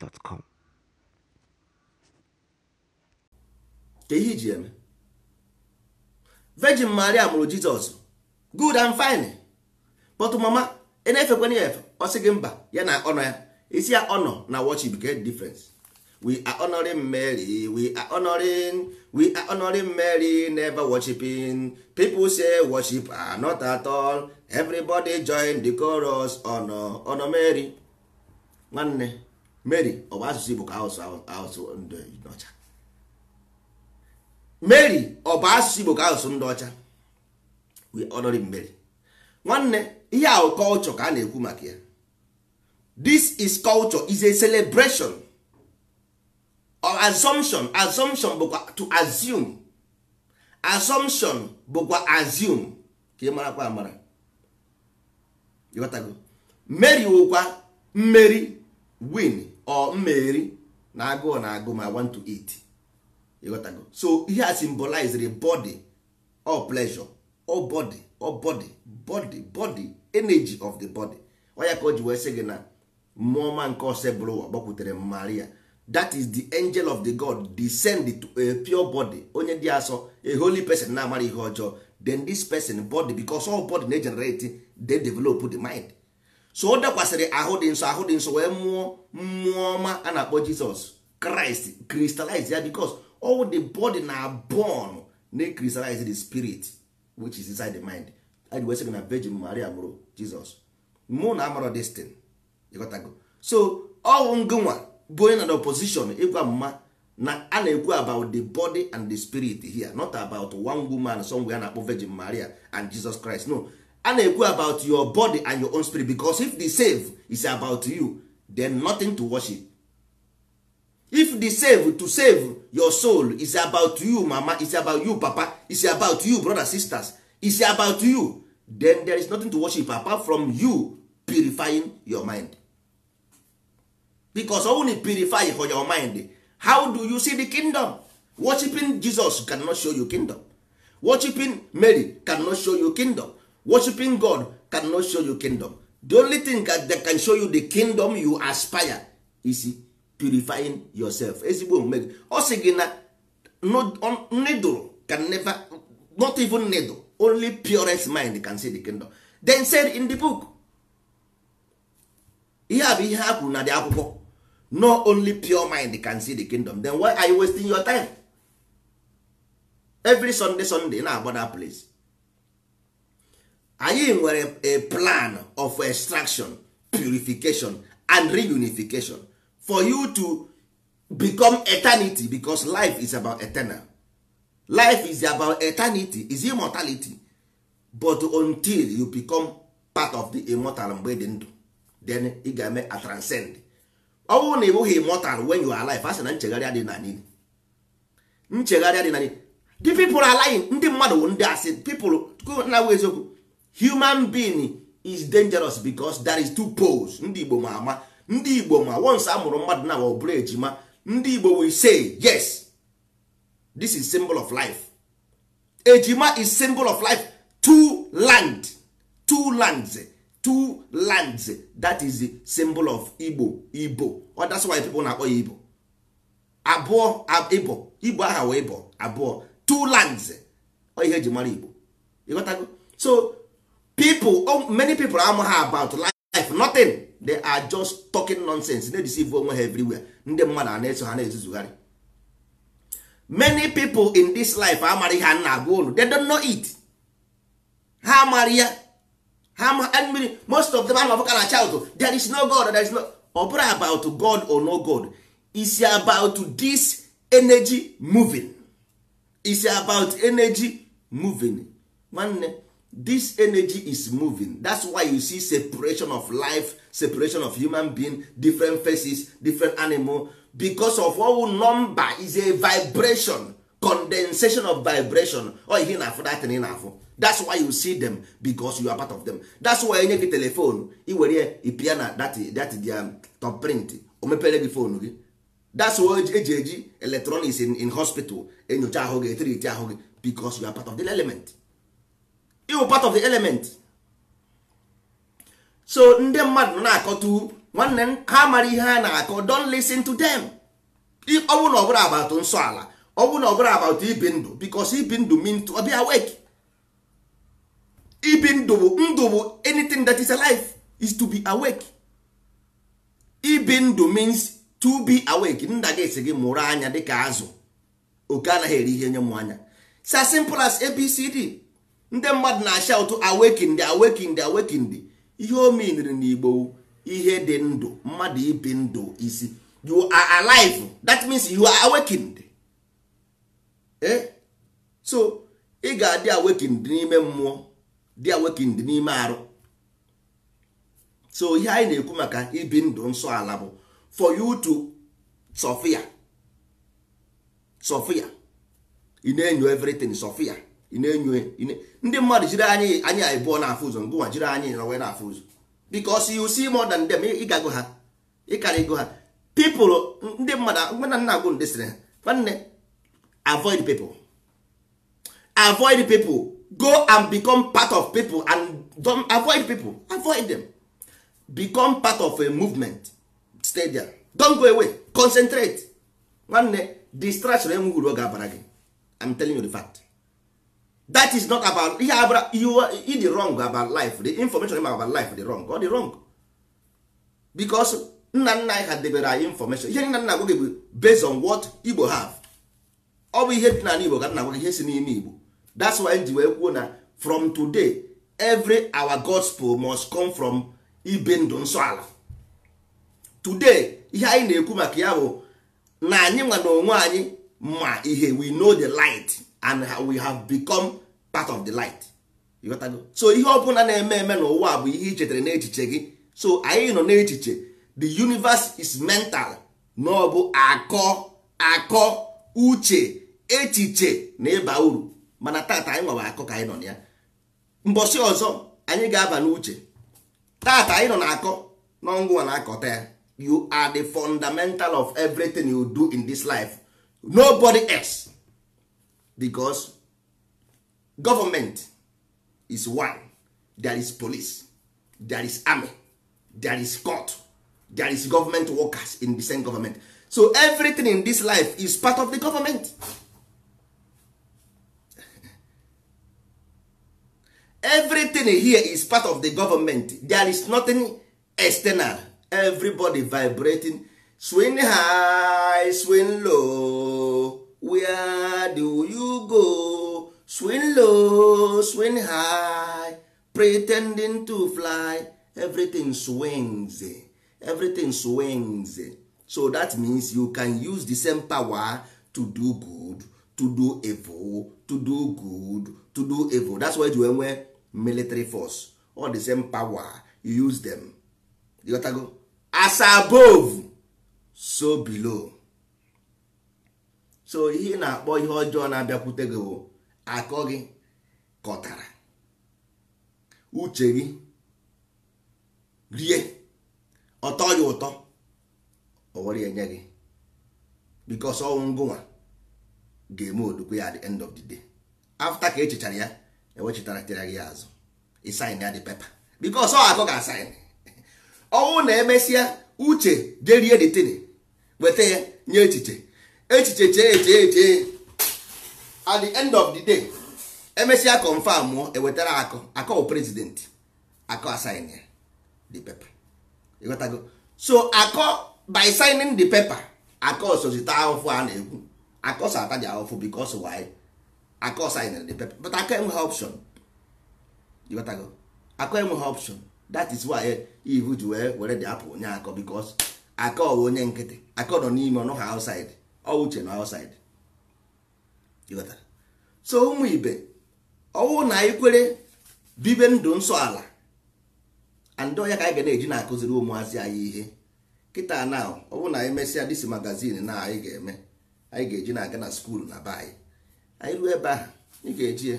gmail.com ka ihe iji eme virgin maria mụrụ jizọs good and fine but mama ị e na ya efe ọ sị gị mba ya na ọnọ ya isi ya ọnọ na worship get difference we are honoring Mary we are honoring we are honoring Mary never worshiping people say worship are not at all everybody join the chorus honor honor Mary nwanne mary ọ bụ asụsụ igbo ka asụsụ asụsụ ọcha mary ọ bụ asụsụ igbo ka asụsụ ndị ọcha we honor mary nwanne ihe ahụ culture ka a na-ekwu maka ya this is culture is a celebration or assumption assumption bụkwa to assume assumption bụkwa assume ka ị marakwa amara ịghọtago mary wụkwa mmeri win ọ mmeri na agụụ na agụ ma want to eat ịghọtago so ihe a symbolize body or pleasure or body or body body body energy of the body oya ka o ji wee sị gị na mmụọma nke ụwa gbakwutere maria that is the angel of the god descend to a pure body onye dị asọ a holy person na-amara ihe ọjọọ then this person body because all body na-egenerate they develop the mind so ọ dakwasịrị ahụ dị nsọ ahụ dị nsọ wee mụọ mmụọ ọma a na-akpọ jizọs kraịst crystallize ya because all the body na born na kristalize the spirit which is inside the mind anyị wee na virgin maria mụrụ jizọs mụ na amara destin ịghọtago so ọwụ ngụnwa bụ onye na the opposition ịgwa mma na a na-ekwu about the body and the spirit here not about one woman somewhere a na-akpọ virgin maria and jesus christ no a na-ekwu about your body and your own spirit because if the save is about you then nothing to worship if the save to save your soul is about you mama is about you papa is about you brother sisters is about you then there is nothing to worship apart from you purifying your mind because only purify for your mind how do you see the kingdom worshiping jesus cannot show you kingdom worshiping mary cannot show you kingdom worshiping god cannot show you kingdom the only thing that can show you the kingdom you aspire is purifying yourself ezigbo omume gị ọ sị gị na needle can never not even needle only purest mind can see the kingdom then said in the book ihe a bụ ihe ha kwuru na dị akwụkwọ no only pure mind can see the kingdom then why are you wasting your time every sunday sunday na-agba that place anyị nwere a plan of extraction purification and reunification for you to become eternity because life is about eternal life is about eternity is immortality but until you become part of the immortal mgbe dị ndụ then ị ga-eme a transcend ọ bụrụ na ị bụghị immortal when you are alive a sị na nchegharị adịghị na niile nchegharị adịghị na Di the people are lying ndị mmadụ ndị asị people na-awụ eziokwu human being is dangerous because there is two poles ndị igbo ma ama ndị igbo ma once a mụrụ mmadụ na ọ bụrụ ejima ndị igbo will say yes this is symbol of life ejima is symbol of life two land two lands two lands that is the symbol of igbo igbo oh, that's why people na-akpọ ya igbo abụọ igbo igbo aha wee bụ abụọ two lands oh, ihe eji mara igbo ịghọtago so people oh, many people amaghị about life nothing they are just talking nonsense na deceive onwe ha everywhere ndị mmadụ a na-eso ha na-ezuzugharị many people in this life amara ha nna na-agwa unu they don't know it ha amara ya ha mmiri most of them anọbụka na child there is no god there is no ọ bụrụ about god or no god is about this energy moving is about energy moving nwanne this energy is moving that's why you see separation of life separation of human being different faces different animal because of all number is a vibration condensation of vibration or oh, ihe na-afụ that thing na-afụ that's why you see them because you are part of them that's why enye gị telefonu iwere ipia na that dia top print o mepere gị fonu gị that's why eji eji electronics in, in hospital enyocha ahụ gị etiriti ahụ gị because you are part of the element iwu part of the element so ndị mmadụ na-akọtu nwanne m ha mara ihe ha na-akọ don listen to them ọ bụrụ na ọbụla abatụ nsọ ala ọ bụrụ na ọbụla abatụ ibi ndụ because ibi ndụ mean to be awake ibi ndụ bụ ndụ bụ anything that is alive is to be awake ibi ndụ means to be awake nna gị esi gị mụrụ anya dịka azụ oke anaghị eri ihe nye m anya it's as simple as abcd ndị mmadụ na ụtụ awekindi awekindi awekindi ihe o na n'igbo ihe dị ndụ mmadụ ibi ndụ isi you are alive that means you are awakened eh? so ị ga-adị awakened n'ime mmụọ dị awakened n'ime arụ so ihe anyị na-ekwu maka ibi ndụ nsọ ala bụ for you to sofia sofia ị na sofia ị na-enyo e, ndị mmadụ jiri anyị anyị abụọ na-afụ ụzọ ngụ nwa jiri anyị na wee na-afụ ụzọ because you see more than them ịgago ha ịkara ego ha people ndị mmadụ mgbe na nna agwụ ndị sịrị ha nwanne avoid people avoid people go and become part of people and don't avoid people avoid them become part of a movement stay there don't go away concentrate nwanne distraction enweghị uru ọ ga-abara gị I'm telling you the fact that is not about ihe abụra ị dị wrong about life the information about life dị wrong ọ dị wrong because nna nna anyị ha debere anyị information ihe nna nna agwa gị bụ based on what Igbo have ọ bụ ihe dị n'ala Igbo ka nna agwa ihe si n'ime Igbo that's why ji wee kwuo na from today every our gospel must come from ibe ndụ nsọ ala today ihe anyị na-ekwu maka ya bụ na anyị nwa na onwe anyị ma ihe we know the light and we have become part of the light so ihe ọbụla na-eme eme n'ụwa bụ ihe i chetara n'echiche gị so anyị nọ n'echiche the universe is mental na ọ bụ akọ akọ uche echiche na ịba uru mana tata anyị nọba akọ ka anyị nọ ya mbọsi ọzọ anyị ga-aba n'uche tata anyị nọ na akọ n'ọngwa na-akọta ya you are the fundamental of everything you do in this life nobody else. because government is one there is police there is army there is court there is government workers in the same government so everything in this life is part of the government everything here is part of the government there is nothing external everybody vibrating swing high swing low where do you go swing low swing high pretending to fly everything swings eh. everything swings eh. so that means you can use the same power to do good to do evil to do good to do evil that's why you enwe military force all the same power you use them you go as above so below so ihe ị na-akpọ ihe ọjọọ na-abịakwute gị bụ akọ gị kọtara uche gị rie ọtọ ya ụtọ o enye gị because ọnwụ ngụnwa ga-eme odukwu ya at the end of the day after ka echechara ya ewechitaratara gị azụ ịsain ya dị pepa because ọ akọ ga-asain ọnwụ na-emesịa uche jerie detin weta ya nye echiche echiche chee chee chee at the end of the day emesịa confam mụọ e ewetara akọ akọ prezidenti akọ asign the paper ịghọtago so akọ by signing the paper akọ sozita ahụfụ a na-ekwu akọ so ataji ahụfụ because why akọ sign the paper but akọ enweghị option ịghọtago akọ enweghị option that is why ihu ji wee were dị apụl onye akọ because akọ onye nkịtị akọ nọ n'ime ọnụ ha outside ọ na outside so ụmụ ibe ọwụ na anyị kwere bibe ndụ nsọ ala andị ọhịa ka anyị ga na-eji na-akụziri ụmụazị anyị ihe kịta na ọ na anyị mesịa disi magazin na anyị ga-eme anyị ga-eji na-aga na skuulu na be anyị anyị ruo ebe ahụ ị ga-eji ya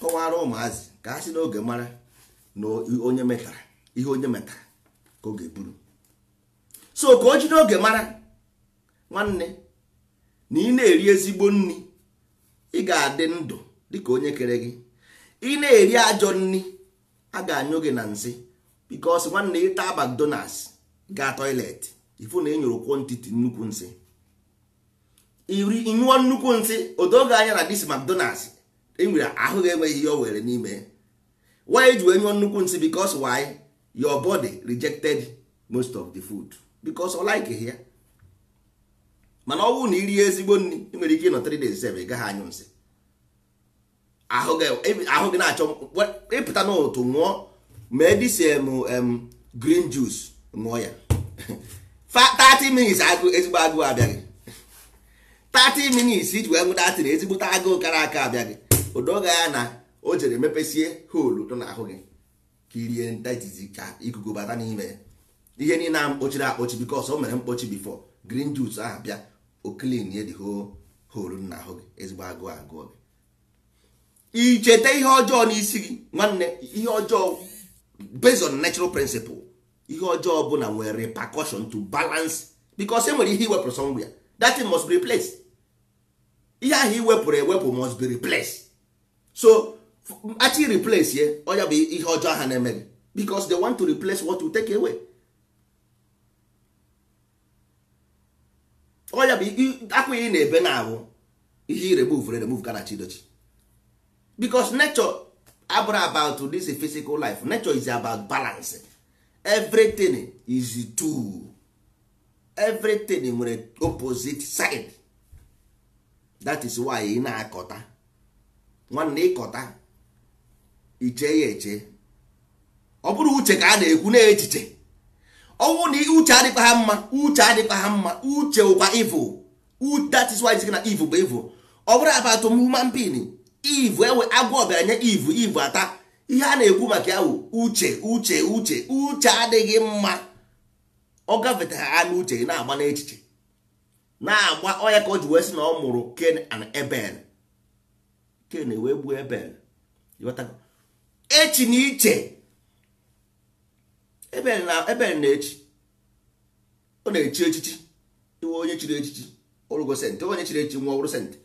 kọwara ụmụazị ka ha si n'oge mara na onye metara ihe onye metara ka oge ga so ka o ji n'oge mara nwanne na ị na-eri ezigbo nri ị ga-adị ndụ dịka onye kere gị ị na-eri ajọ nni a ga-anyụ gị na nsị bikos nwanne ịta McDonald's gaa toilet ifu na enyoro kwọntiti nnukwu nsị iri ịnyụọ nnukwu nsị odoge anya na dis McDonald's enwere ahụ ga-enweghị ihe o were n'ime why e ji wee nyụọ nnukwu nsị bikos most of the food bikos ọ mana ọnwụ na iri ezigbo nri ị nwere ike ịnọ 3 days ị gaghị anyụ nsị ahụ gị na-achọ ịpụta n'otu ṅụọ mee disem green juice ṅụọ ya 30 minutes agụ ezigbo agụụ abịaghị 30 minutes iji wee nwụta atịrị ezigbote agụụ kara aka abịaghị odoga ya na o jere mepesie holu nọ n'ahụ gị ka irie ntajizi ka ikuku bata n'ime ihe niile a mkpochiri akpochi bikos o mere mkpochi bifo green juice ahụ bịa oklin ye dị holu nna ahụ gị ezigbo agụụ agụọ gị icheta ihe ọjọọ n'isi gị nwanne ihe ọjọọ based on natural principle ihe ọjọọ bụ na nwere repercussion to balance because e nwere ihe iwepụrụ ya that thing must be replaced ihe ahụ iwepụrụ ewepụ must be replaced so actually replace ye ọ ya bụ ihe ọjọọ ha na-eme gị because they want to replace what you take away. ọ bụ na-ebe na-abụ ihe irebe uvere remove garachi dochi because nature abụrụ about this physical life nature is about balance everything is two everything nwere opposite side that is why ị na-akọta nwanne ịkọta iche ya eche ọ bụrụ uche ka a na-ekwu na echiche ọnwụ na uche adịkwa ha mma uche adịkwa ha mma uche ụkwa evil that is na evil bụ evil ọ bụrụ abatụ human being evil enwe agwọ bịara nye evil evil ata ihe a na-ekwu maka ya wụ uche uche uche uche adịghị mma ọ gafetara ha n'uche gị na-agba n'echiche na-agba ọya ka o ji wee sị na ọ mụrụ Ken and Abel Ken e wee gbuo Abel echi na iche ebe na-echi ọ na-echi echichi iwe onye chiri echichi ọrụgo sentị onye chiri echichi nwa ọrụ sentị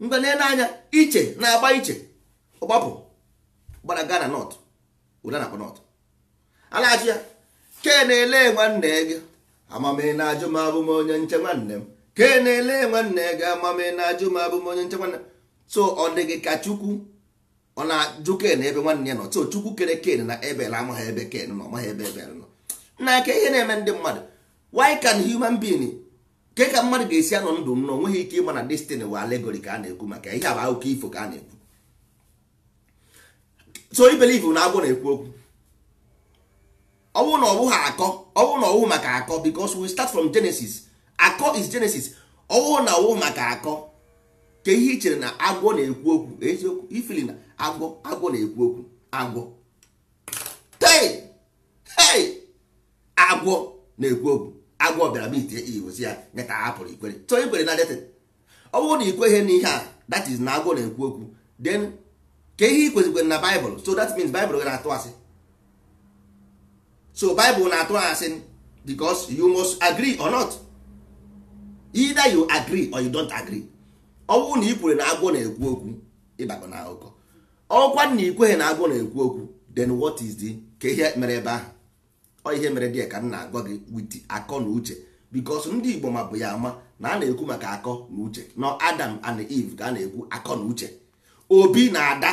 mgbe na-ele anya iche na-agba iche ọgbapụ gbara gana nọt ụda na nọt a na-achị ya ke na-ele nwanne gị amame na ajụ m abụ m onye nche nwanne m ke na-ele nwanne gị amame na ajụ m abụ m onye nche nwanne m so ọ dị gị ka chukwu ọ na-ajụ ken ebe nwanne ya nọ so chukwu kere ken na ebel amaghị ebe ken nọ ọmaghị ebe ebel nọ na ka ihe na-eme ndị mmadụ why can human being ke ka mmadụ ga-esi anọ ndụ m na onweghị ike ịma na destiny wa alegori ka a na-ekwu maka ihe bụ akụkọ ifo ka a na-ekwu so ibelivu na agwọ na-ekwu okwu ọ na ọ akọ ọ na ọwụ maka akọ because we start from genesis akọ is genesis ọ na ọwụ maka akọ ka ihe i chere na agwọ na-ekwu okwu eziokwu ifili agwọ agwọ na-ekwu okwu agwọ tei hei agwọ na-ekwu okwu agwọ bịara mitie igosi ya nyeta ka a ikwere so ikwere na detin ọ bụrụ na ikweghị na ihe a that is na agwọ na-ekwu okwu then ka ihe ikwezikwere na baịbụl so that means baịbụl na-atụ asị so baịbụl na-atụ asị because you must agree ọ not either you agree or you don't agree ọ bụrụ na ikwere na agwọ na-ekwu okwu ịbakọ na akụkọ ọkwa na ikweghị na agụ na-ekwu okwu then what is the ka ihe mere ebe ahụ ọ ihe mere dị ka m na-agwa gị wit akọ na uche because ndị Igbo ma bụ ya ama na a na-ekwu maka akọ na uche na Adam and Eve ka a na-ekwu akọ na uche Obi na Ada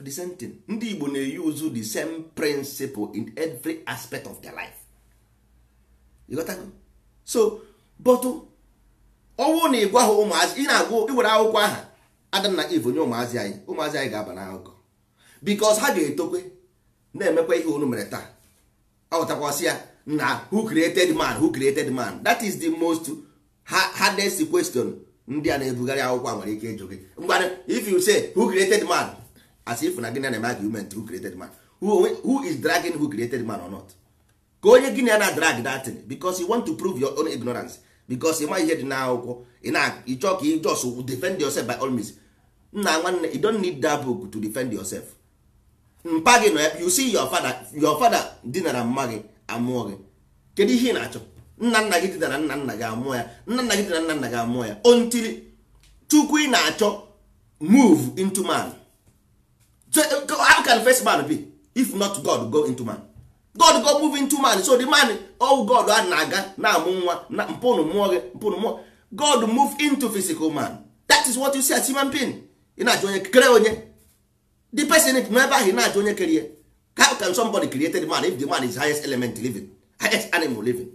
the same thing ndị Igbo na-use the same principle in every aspect of their life you got that? so but ọnwụ na ịgwa ha ụmụazị ị na-agwụ iwere akwụkwọ aha adam na eve onye ụmụazị anyị ụmụazị anyị ga-aba n'akụkọ because ha ga-etokwe na-emekwa ihe unu mere taa aghọtakwasị ya na who created man who created man that is the most hardest question ndị a na-ebugharị akwụkwọ nwere ike ịjụ gị if you say who created man as if na gịnị na-eme argument who created man who, is dragging who created man or not ka onye gịnị na drag dat because you want to prove your own ignorance because ịma ihe dị n'akwụkwọ ịchọ ka ị just defend yourself by all means nna nwanne you don't need that book to defend yourself mpa gị nọ you see your father your father dinara mma gị amụọ gị kedu ihe ị na-achọ nna nna gị dinara nna nna gị amụọ ya nna nna gị dinara nna nna gị amụọ ya until chukwu ị na-achọ move into man so how can first man be if not God go into man god go move into man so the man oh god a na-aga na-amụ nwa na mpụnụ gị mpụnụ god move into physical man that is what you see as human being ị na-ajụ onye kere onye the person if ebe ahụ na-ajụ onye kerie how can somebody create the man if the man is highest element living highest animal living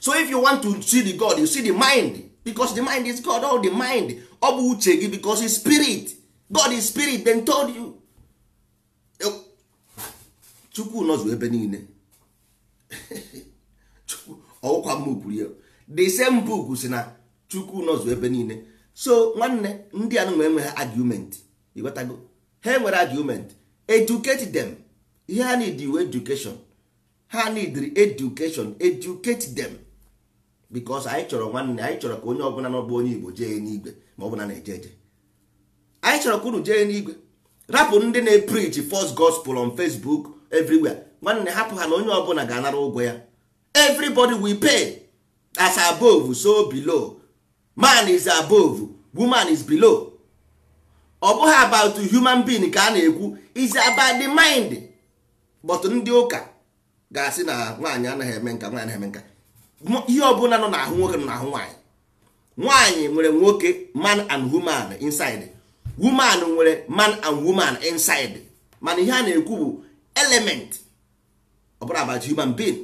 so if you want to see the god you see the mind because the mind is god all oh, the mind ọ bụ uche gị because is spirit god is spirit then told you chukwu nọzụ ebe niile ọwụkwa mma kwuru ya the same book si na chukwu nọzụ ebe niile so nwanne ndị anụ nwee nweghị argument ịghọtago ha nwere argument educate them ihe ha need you education ha need education educate them because anyị chọrọ nwanne anyị chọrọ ka onye ọbụla n'ọbụ onye igbo jee n'igwe ma ọ bụla na-eje eje anyị chọrọ ka unu jee n'igwe rapụ ndị na-epreach first gospel on facebook everywhere nwanne hapụ ha na onye ọbụla ga-anara ụgwọ ya everybody we pay as above so below man is above woman is below ọ bụghị about human being ka a na-ekwu is about the mind but ndị ụka ga-asị na nwaanyị anaghị eme nka nwaanyị eme nka ihe ọbụla nọ n'ahụ nwoke nọ n'ahụ nwaanyị nwaanyị nwere nwoke man and woman inside woman nwere man and woman inside mana ihe a na-ekwu bụ element ọ bụrụ about human being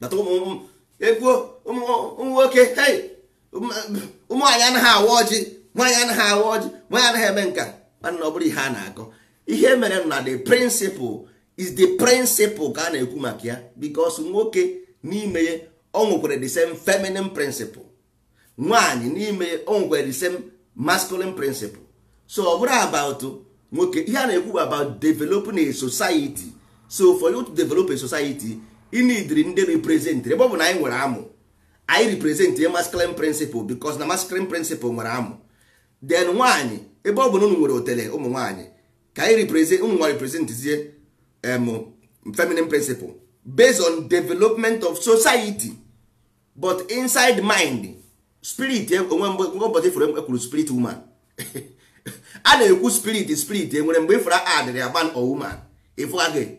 data egwuo ụmụ nwoke ụmụ anaghị awa ọjị nwaanyị anaghị awa ọjị nwaanyị anaghị eme nka mana ọ bụrụ ihe a na-akọ ihe mere na the principle is the principle ka a na-ekwu maka ya because nwoke n'ime ya o the same feminine principle nwaanyị n'ime ya o the same masculine principle so ọ bụrụ about nwoke ihe a na-ekwu about developing a society so for you to develop a society ị nidiri ndị represent ebe ọ bụ na anyị nwere amụ anyị represent a masculine principle because na masculine principle nwere amụ then nwaanyị ebe ọ bụ na unu nwere otele ụmụ nwaanyị ka anyị represent ụmụ nwa representzie um, feminine principle based on development of society but inside mind spirit onwe mgbe ụbọchị fụrụ ekwuru spirit woman a na-ekwu spirit spirit enwere mgbe ifra e adịrị a man or woman ifu e again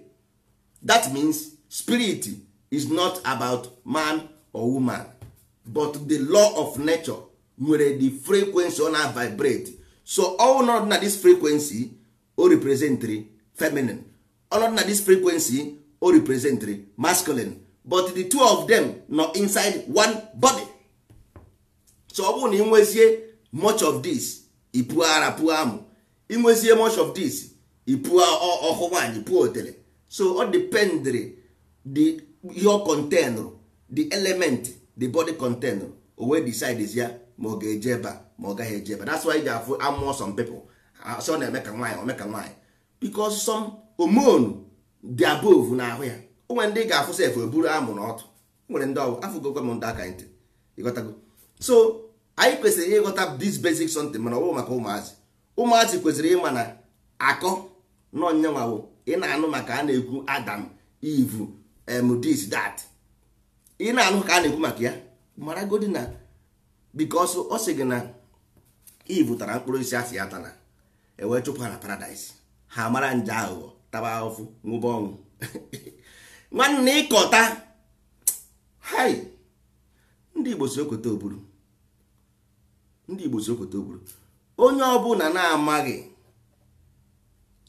that means spirit is not about man or woman but the law of nature nwere the frequency ona vibrate so ọnọdụ na this frequency o representri feminine ọnọdụ na this frequency o representri masculine but the two of them nọ inside one body so ọ bụrụ na ị nwezie much of this ipu ara pụọ amụ inwezie much of this ipu ọhụ nwaanyị pụọ otere so ọ dependri the ihe ọ contenrụ the element the body contenrụ owe wee decide ya ma ọ ga-eje ebe ma ọ gaghị eje ebe that's why ga afụ amụọ some people so na-eme ka nwaanyị ome ka nwaanyị because some hormone dị na-ahụ ya onwe nwere ndị ga-afụ sef eburu amụ na ọtụ nwere ndị ọgwụ afụgokwa m ndị aka ntị ịghọtago so anyị kwesịrị ịghọta this basic something mana ọ maka ụmụazị ụmụazị kwesịrị ịma na akọ nọnyanwawụ ị na-anụ maka a na-ekwu adam ivu em dat ị na-anụ ka a na-ekwu maka ya mara godi na ọ sị gị na ivu tara mkpụrụ isi asị ya tana ewee chụpụ ha na ha mara nje aghụghọ taba ahụfụ nwụba ọnwụ nwanne ịkọta hai ndị Igbo si okweta oburu ndị igbo si okoto gburu onye ọbụla na-amaghị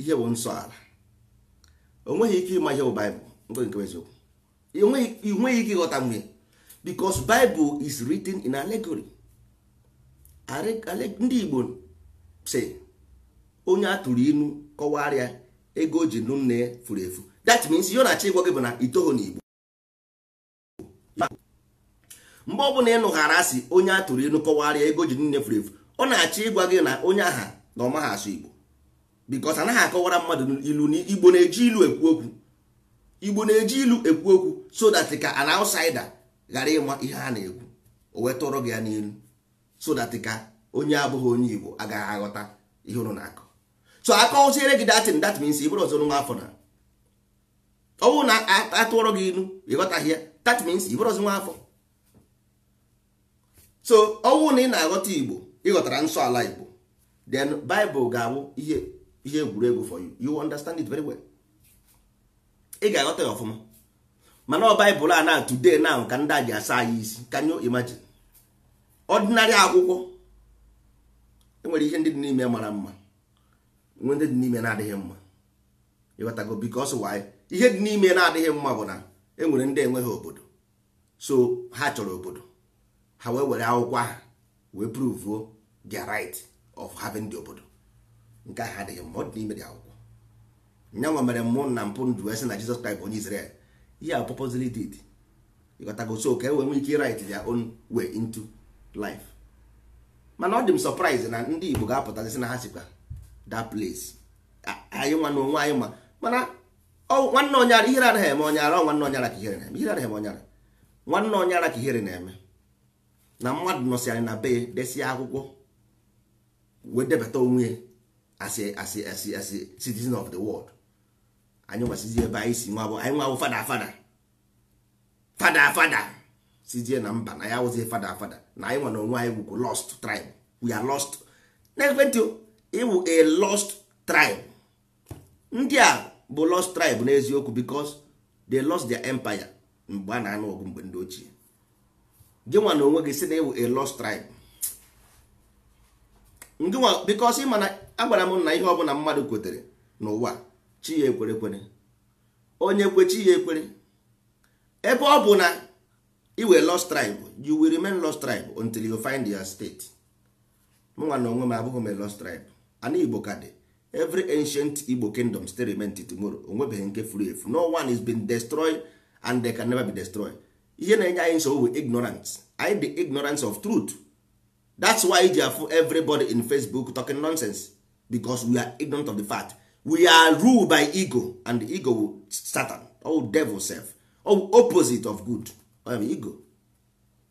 ihe bụ nsọ ala onweghị ike ịma ihe bụ baịbụl nke nke eziokwu inweghị ike ịghọta mgbe bikos baịbụl is written in allegory ndị igbo si onye a tụrụ inu kọwarịa ego o ji nụ nne ya furu efu that means ihe ọ na-achọ gị bụ na itoho n'igbo mgbe ọbụla ịnụghara asị onye a tụrụ ịnụ ego ji niile furu efu ọ na-achọ ịgwa gị na onye aha na ọma ha asụ igbo bikos anaghị akọwara mmadụ ilu na igbo na-eji ilu ekwu okwu igbo na-eji ilu ekwu okwu so that ka an ghara ịma ihe a na-ekwu o wee tụrụ gị ya n'elu so ka onye abụghị onye igbo agaghị aghọta ihe na-akọ so that ịbụrụ ọzọ so ọnwụ na ị na-aghọta igbo ịghọtara nsọ ala igbo then bible ga-abụ ihe ihe egwuregwu for you you understand it very well ị ga-aghọta ya ọfụma mana ọ baịbụl a na today now ka ndị a ji asa anyị isi can you imagine ọdịnarị akwụkwọ enwere ihe ndị dị n'ime mara mma nwee ndị dị n'ime na-adịghị mma ịghọtago because why ihe dị n'ime na-adịghị mma bụ na enwere ndị enweghị obodo so ha chọrọ obodo ha wee were akwụkwọ ahụ wee prove the right of having the obodo nke ahụ adịghị mma ọ dị n'ime dị akwụkwọ nyanwa mere mụ na mpụ ndụ wee sị na Jizọs Kraịst onye Izrel ihe a purposely did ịghọtago so ka e wee ike right their own way into life mana ọ dị m na ndị Igbo ga-apụtazi na na onwe ka onye ka ihere na-eme na mmadụ nọsị anyị na be desie akwụkwọ wee debata onwe asị asị asị asị citizen of the world anyị nwasizi ebe anyị si nwa anyị nwa fada fada fada fada sizie na mba na ya awụzie fada fada na anyị nwa na onwe anyị wụkwu lost tribe we are lost n'ekwentị ịwụ a lost tribe ndị a bụ lost tribe n'eziokwu because they lost their empire mgbe a na-anụ ọgụ mgbe ndị ochie gịnwa na onwe gị si na ewu a lost tribe ngịnwa because ị ma na agwara m na ihe ọbụla mmadụ kwetere n'ụwa chi ya ekwere ekwere onye kwe chi ya ekwere ebe ọ bụ na i were lost tribe you will remain lost tribe until you find your state mụnwa na onwe m abụghị m lost tribe ana igbo ka dị every ancient igbo kingdom still remain tomorrow onwebeghị nke furu efu no one is been destroyed and they can never be destroyed ihe na-enye anyị nsogbu ignorance anyị the ignorance of truth that's why ji afụ everybody in facebook talking nonsense because we are ignorant of the fact we are ruled by ego and the ego satan or devil self or opposite of good or ego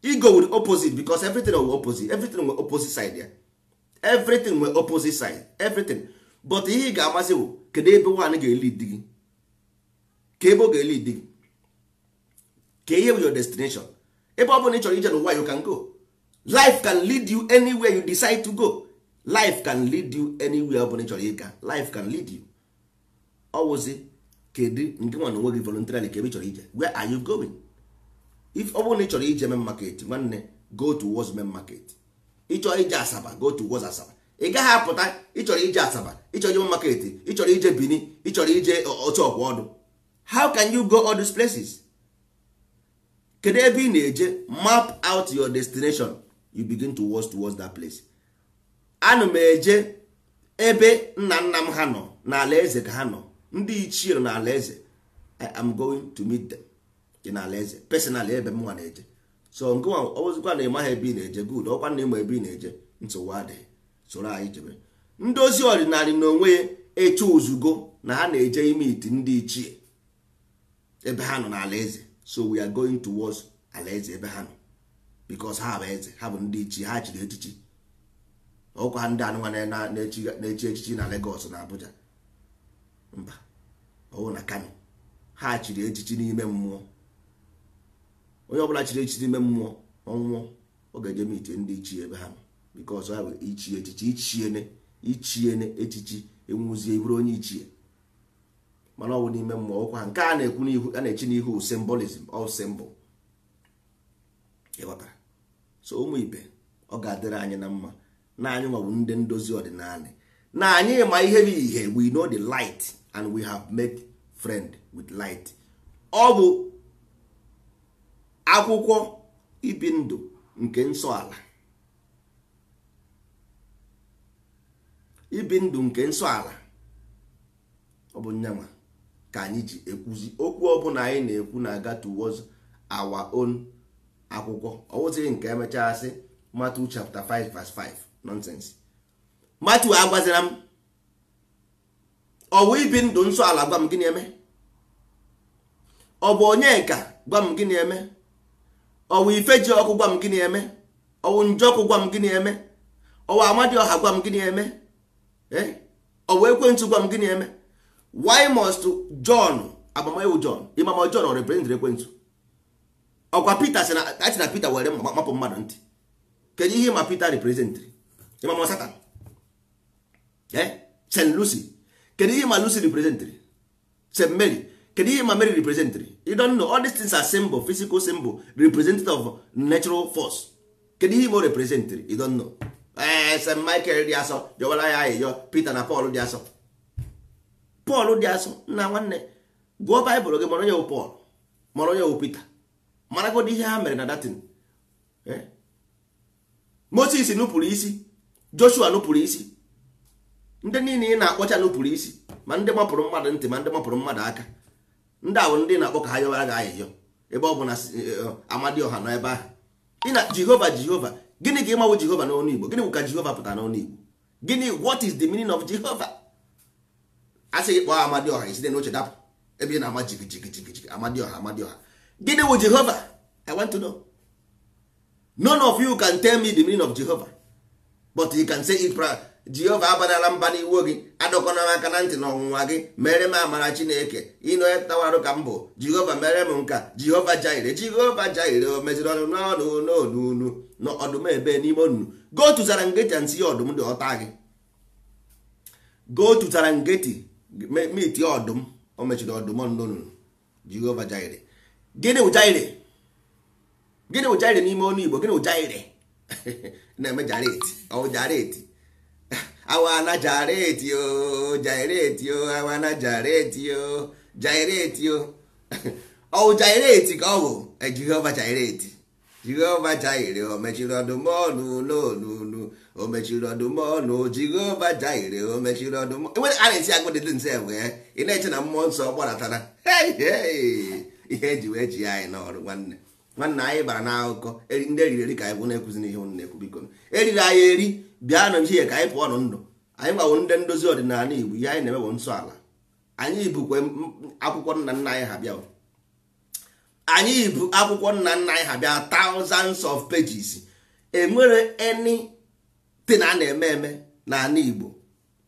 ego will opposite because everything will opposite everything will opposite side ya everything will opposite side everything but ihe ị ga-amasị bụ kedu ebe nwaanyị ga-eli di gị ka ebe ọ ga-eli di gị ka ihe your destination ebe ọ bụla ị chọrọ ije n'ụwa you can go life can lead you anywhere you decide to go life can lead you anywhere ọ bụla ị chọrọ ịga life can lead you ọwụzi kedu nke nwa na gị voluntarily ka ebe chọrọ ije where are you going if ọ bụrụ na ị chọrọ ije mee market nwanne go to wos main market ị chọrọ ije asaba go to wos asaba ị gaghị apụta ịchọrọ ije asaba ịchọrọ ije market ịchọrọ ije bini ịchọrọ ije otu ọkwa ọdụ how can you go all these places kedu ebe ị na-eje map out your destination you begin to watch towards that place ana m eje ebe nna nna m ha nọ n'ala eze ka ha nọ ndị ichie nọ n'ala eze i am going to meet them dị n'ala eze personally ebe m nwa na-eje so nke nwa ọbụzikwa na ịmaghị ebe ị na-eje good ọkwa na ịma ebe ị na-eje nsogbu adịghị soro anyị jebe ndozi ozi ọdịnala na onwe ya eche ozugbo na ha na-eje ime iti ndị ichie ebe ha nọ n'ala eze so we are going towards alaeze ebe ha nọ because ha bụ eze ha bụ ndị ichi ha chiri echichi ọkwa ndị anụmanụ na-echi echichi na Lagos na Abuja mba ọwụ na Kano ha chiri echichi n'ime mmụọ onye ọbụla chiri echichi n'ime mmụọ ọnwụọ ọ ga-eje mitie ndị ichie ebe ha nọ because ha bụ ichi echichi ichiene ichiene echichi enwuzie bụrụ onye ichie mana ọnwụ n'ime mmụọ ụkwa nke a na-ekwu n'ihu a na-echi n'ihu symbolism ọ symbol ịghọtara so ụmụ ibe ọ ga-adịrị anyị na mma na anyị nwawu ndị ndozi ọdịnala na anyị ma ihe bụ ihe we know the light and we have made friend with light ọ bụ akwụkwọ ibi ndụ nke nsọ ala ibi ndụ nke nsọ ala ọ bụ nyanwa ka anyị ji ekwuzi okwu ọbụla anyị na-ekwu na-aga towards our own akwụkwọ ọwụzighị nke emechaa sị Matthew chapta 5 verse 5 nonsense Matthew agwazira m ọwụ ibi ndụ nsọ ala gwa m gịnị eme ọ bụ onye nka gwa m gịnị eme ọwụ ji ọkụ gwa m gịnị eme ọwụ njọkụ gwa m gịnị eme ọwụ amadioha gwa m gịnị eme ọwụ ekwentị gwa m gịnị eme why must john agbamaewu john ịmama john ọ represent ekwentị ọkwa peter si na achị na peter were mapụ mmadụ ntị kedu ihe ma peter representịrị ịmama satan eh? st lucy kedu ihe ma lucy representịrị st mary kedu ihe ma mary representịrị you don't know all these things are symbol physical symbol representative of natural force kedu ihe ma o representịrị you know eh st michael dị asọ jọwara ya ayịyọ peter na paul dị asọ pọl dị asụ nna nwanne gụọ baịbụl gị mara onye wụ pọl mara onye wụ pita maragodị ihe ha mere na datin moses nupụrụ isi joshua nupụrụ isi ndị niile ị na-akpọcha nupụrụ isi ma ndị mapụrụ mmadụ ntị ma ndị mapụrụ mmadụ aka ndị ahụ ndị na-akpọ ka ha yọwara gị ahịhịọ ebe ọ bụ na eh, eh, amadioha nọ ebe ahụ ị na jehova jehova gịnị ka ịmawụ jehova n'ọnụ igbo gịnị bụ ka jehova pụtara n'ọnụ igbo gịnị what is the meaning of jehova asị gị kpọọ amadioha isite n'oche dapụ ebe ị na-ama jigijigijigiji amadioha amadioha gịnị wụ jehova i want to know none of you can tell me the meaning of jehova but you can say it jehova abanala mba n'iwu gị adọkọna m aka na ntị na gị mere m amara chineke ịnọtawarụ ka m bụ jehova mere m nka jehova jaire jehova jaire o meziri ọnụ n'ọnụ n'ọnụ n'ọdụm ebe n'ime onunu go tụzara ngeti and ọdụm dị ọta gị go tụzara ngeti metie ọdụm o mechiri ọdụm ọnụnụ jehova jaire gịnị gịnị bụ n'ime ọnụ igbo gịnị bụ na-eme jareti ọwụ awana jareti o jaireti o awana jareti o jaireti o ọwụ ka ọ bụ e, jehova jaireti jehova jaire o mechiri ọdụm o mechiri ọdụm ọnụ Jehova Jaire o mechiri ọdụm enwere a na-esi agụ dị nse bụ ya ị na-eche na mmụọ nsọ gbaratara ihe eji wee ji anyị n'ọrụ nwanne nwanne anyị bara na n'akụkọ ndị eriri eri ka anyị bụ na-ekwuzi n'ihe ụnụ na-ekwu biko eriri anyị eri bịa nụ ihe ka anyị pụọ nụ ndụ anyị gbawo ndị ndozi ọdịnala Igbo ihe anyị na-emebụ nsọ ala anyị bukwe akwụkwọ nna nna anyị ha bịa anyị bụ akwụkwọ nna nna anyị ha bịa thousands of pages enwere any tin a na-eme eme n'ala Igbo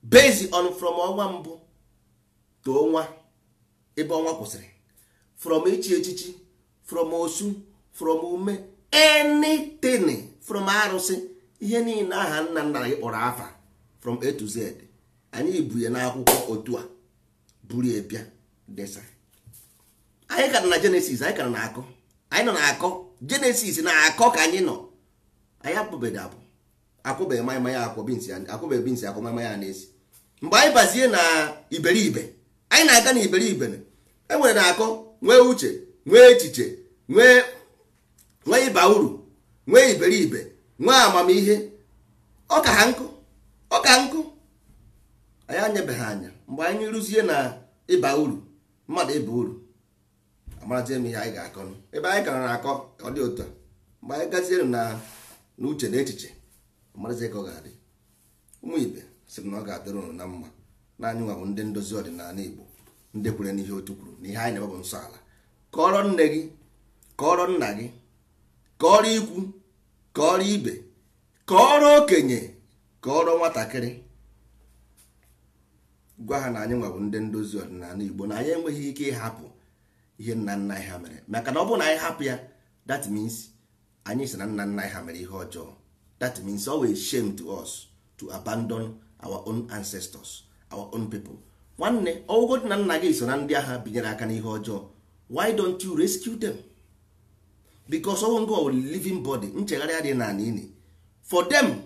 based on from ọnwa mbụ to ọnwa ebe ọnwa kwụsịrị from ichi echichi from osu from ume anything from arụsị ihe niile aha nna nna anyị kpọrọ afa from A to Z anyị bu ya n'akwụkwọ otu a buru ebia desa anyị kara na Genesis anyị kara na akọ anyị nọ na akọ Genesis na akọ ka anyị nọ anyị apụbedo abụ akwụbeghị maịma ya akwọ binsi akwụbeghị binsi akwọ maịma ya na mgbe anyị bazie na iberibe anyị na-aga na iberibe enwere na-akọ nwee uche nwee echiche nwee nwee ịba uru nwee iberibe nwee amamihe ọka ha nkụ ọka nkụ anyị anyebeghị anya mgbe anyị rụzie na ịba uru mmadụ ịba uru amarazie m ihe anyị ga-akọ ebe anyị kara na-akọ ọ dị otu a mgbe anyị gaziere na uche na echiche marazi ka ọ ga-adị ụmụ ibe sị na ọ ga-adịrị ụnụ na mma na anyị nwa bụ ndị ndozi ọdịnala igbo ndị kwere n'ihe otu kwuru na ihe anyị na-ebe bụ nsọ ala kọrọ nne gị kọrọ nna gị kọrọ ikwu kọrọ ibe kọrọ okenye kọrọ nwatakịrị gwa ha na anyị nwa bụ ndị ndozi ọdịnala igbo na anyị enweghị ike ịhapụ ihe nna nna anyị ha mere maka na ọ bụrụ na anyị hapụ ya that means anyị si na nna nna anyị ha mere ihe ọjọọ that means always shame to us to abandon our own ancestors our own people nwanne ọwụgodi na nna gị so na ndị agha binyere aka n'ihe ọjọọ why don't you rescue them because of ngo living body nchegharị dị na ana for them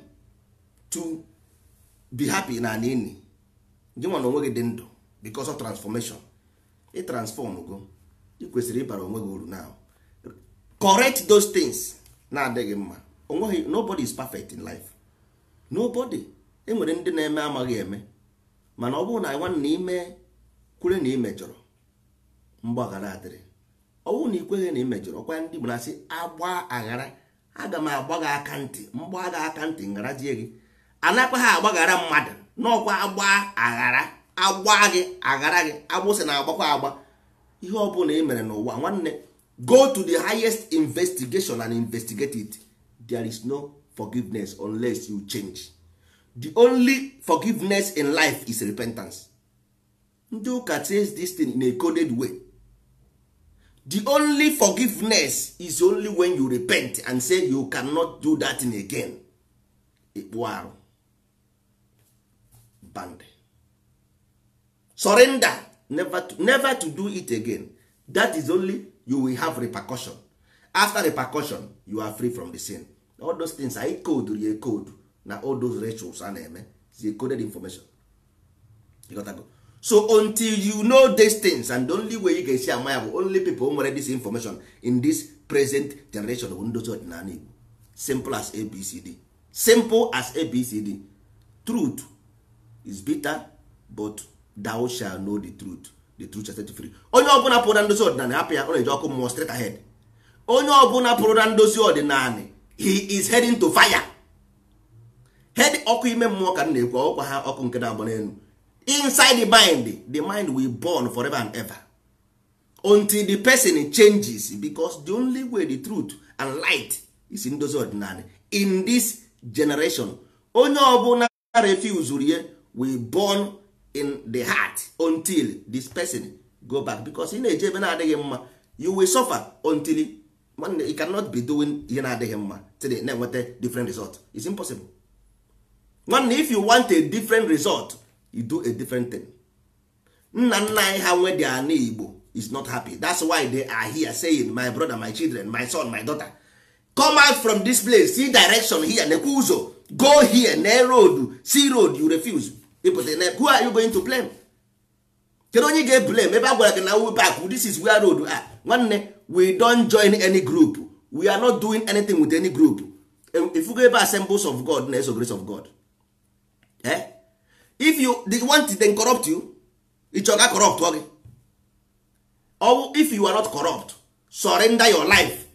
to be happy na ana gị na onwe gị dị ndụ because of transformation ị transform go ị kwesịrị ịbara onwe gị uru now correct those things na-adịghị mma onweghị nobody is perfect in life nobody enwere ndị na-eme amaghị eme mana ọ bụrụ na nwanne na ime kwere na imejọrọ mgbaghara adịrị ọ bụrụ na ikweghị na imejọrọ ọkwa ndị Igbo na agba aghara aga m agba gị aka ntị mgba gị aka ntị jie gị anakwa ha agbaghara mmadụ n'ọkwa agba aghara agba gị aghara gị agbụsị na-agbakwa agba ihe ọ bụla ị e mere n'ụwa nwanne go to the highest investigation and investigate it there is no forgiveness unless you change the only forgiveness in life is repentance ndị ụka says this thing in a coded way the only forgiveness is only when you repent and say you cannot do that thing again ịkpụ arụ band surrender never to, never to do it again that is only you will have repercussion after repercussion you are free from the sin all those things anyị koduru ya code na all those rituals a na-eme zi eh? coded information so until you know these things and the only way you can see ama ya bụ only people nwere this information in this present generation bụ ndozi ọdịnala Igbo simple as abcd simple as abcd truth is bitter but thou shall know the truth the truth shall set you free onye ọbụla pụrụ na ndozi ọdịnala hapụ ya ọ na-eji ọkụ mmụọ straight ahead onye ọbụla pụrụ na ndozi ọdịnala he is heading to fire head ọkụ ime mmụọ ka m na-ekwu ọkwa ha ọkụ nke na-agba n'elu inside the mind the mind will burn forever and ever until the person changes because the only way the truth and light is ndozi ọdịnala in this generation onye ọbụla refusuru ye will burn in the heart until this person go back because ị na-eje ebe na-adịghị mma you will suffer until nwanne you cannot be doing ihe na-adịghị mma today na-enweta different result is impossible nwanne if you want a different result you do a different thing nna nna anyị ha nwe dị igbo is not happy that's why they are here saying my brother my children my son my daughter come out from this place see direction here nekwe ụzọ go here na road see road you refuse ịpụta na who are you going to blame kedu onye ga-eblame ebe a gwara gị na wu back this is where road a we don join any group we are not doing anything with any group go ebe assembles of god na eso grace of god eh? if you they want to corrupt you ichoga corrupt gị or if you are not corrupt surrender your life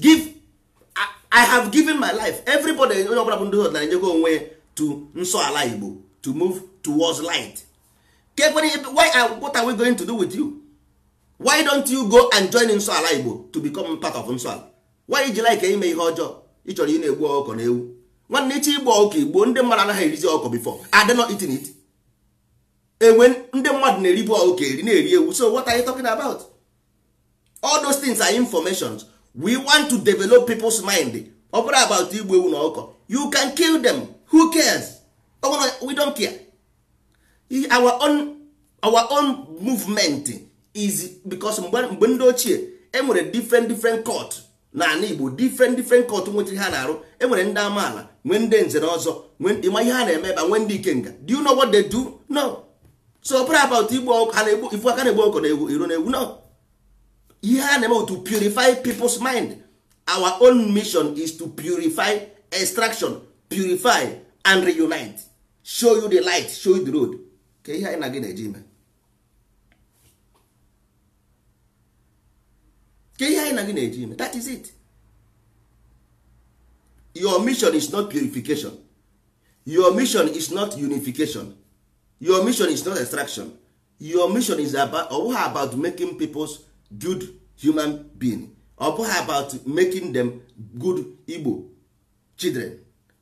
give I, I have given my life everybody onye ọbụla bụ ndị ọdịnala enyego onwe to nsọ ala igbo to move towards light kekwere why what are we going to do with you why don't you go and join nsọ ala igbo to become part of nsọ ala why iji like ime ihe ọjọọ ị chọrọ ị na-egbu ọkụkọ na ewu nwanne iche igbo ọkụkọ igbo ndị mmadụ anaghị erizi ọkụkọ before adị not eating it enwe ndị mmadụ na-eribu ọkụkọ eri na-eri ewu so what are you talking about all those things are informations we want to develop people's mind ọ bụrụ about Igbo ewu na ọkụkọ you can kill them who cares we don't care our own, our own movement is because mgbe ndị ochie enwere different different court n'ala Igbo different different court nwetara ha na-arụ enwere ndị amaala nwee ndị nze na ọzọ ịma ihe ha na-eme ebe nwee ndị ikenga do you know what they do no so pray about igbo ifu aka na-egbu ọkọ na egwu iru na egwu no ihe a na-eme to purify people's mind our own mission is to purify extraction purify and reunite show you the light show you the road ka ihe anyị na gị na-eji ime ke ihe anyị na gị na-eji ime that is it your mission is not purification your mission is not unification your mission is not extraction your mission is about ọ about making peoples good human being ọ about making them good Igbo children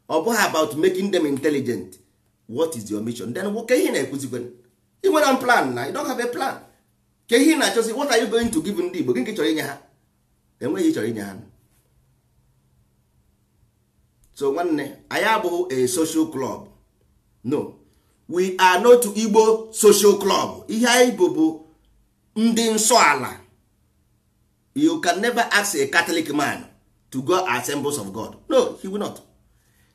ọ about making them intelligent what is your mission then ke ihe na-ekwuzikwe ị nwere plan na you don't have a plan ke ihe na-achọzi what are you going to give ndị Igbo gị nke chọrọ inye ha enweghị chọrọ inye ha so nwanne anyị abụghị a social club no we are not igbo social club ihe anyị bụ bụ ndị nsọ ala you can never ask a catholic man to go assembles of god no he will not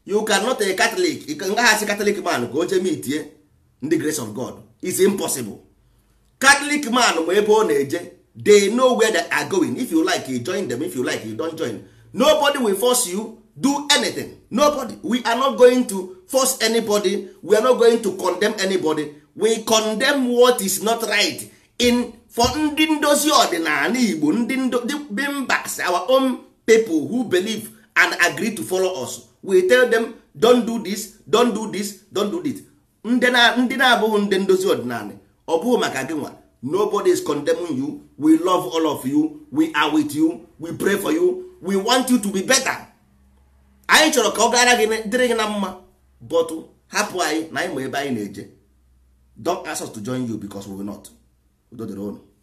you cannot a catholic ngaghị catholic man ka o jee itie ndị grace of god is impossible catholic man ma ebe ọ na-eje they know where they are going if you like you join them if you like you don't join nobody will force you do anything nobody we are not going to force anybody we are not going to condemn anybody we condemn what is not right in for ndị ndozi ọdịnala igbo ndị bimbas our own people who believe and agree to follow us we tell them don't do this don't do this don't do this ndị na-abụghị ndị ndozi ọdịnala ọ bụghị maka gị nwa nobody is condemning you we love all of you we are with you we pray for you we want you to be better anyị chọrọ ka ọ gara gị dịrị gị na mma but hapụ anyị na anyị ma ebe anyị na-eje don ask us to join you because we will not udo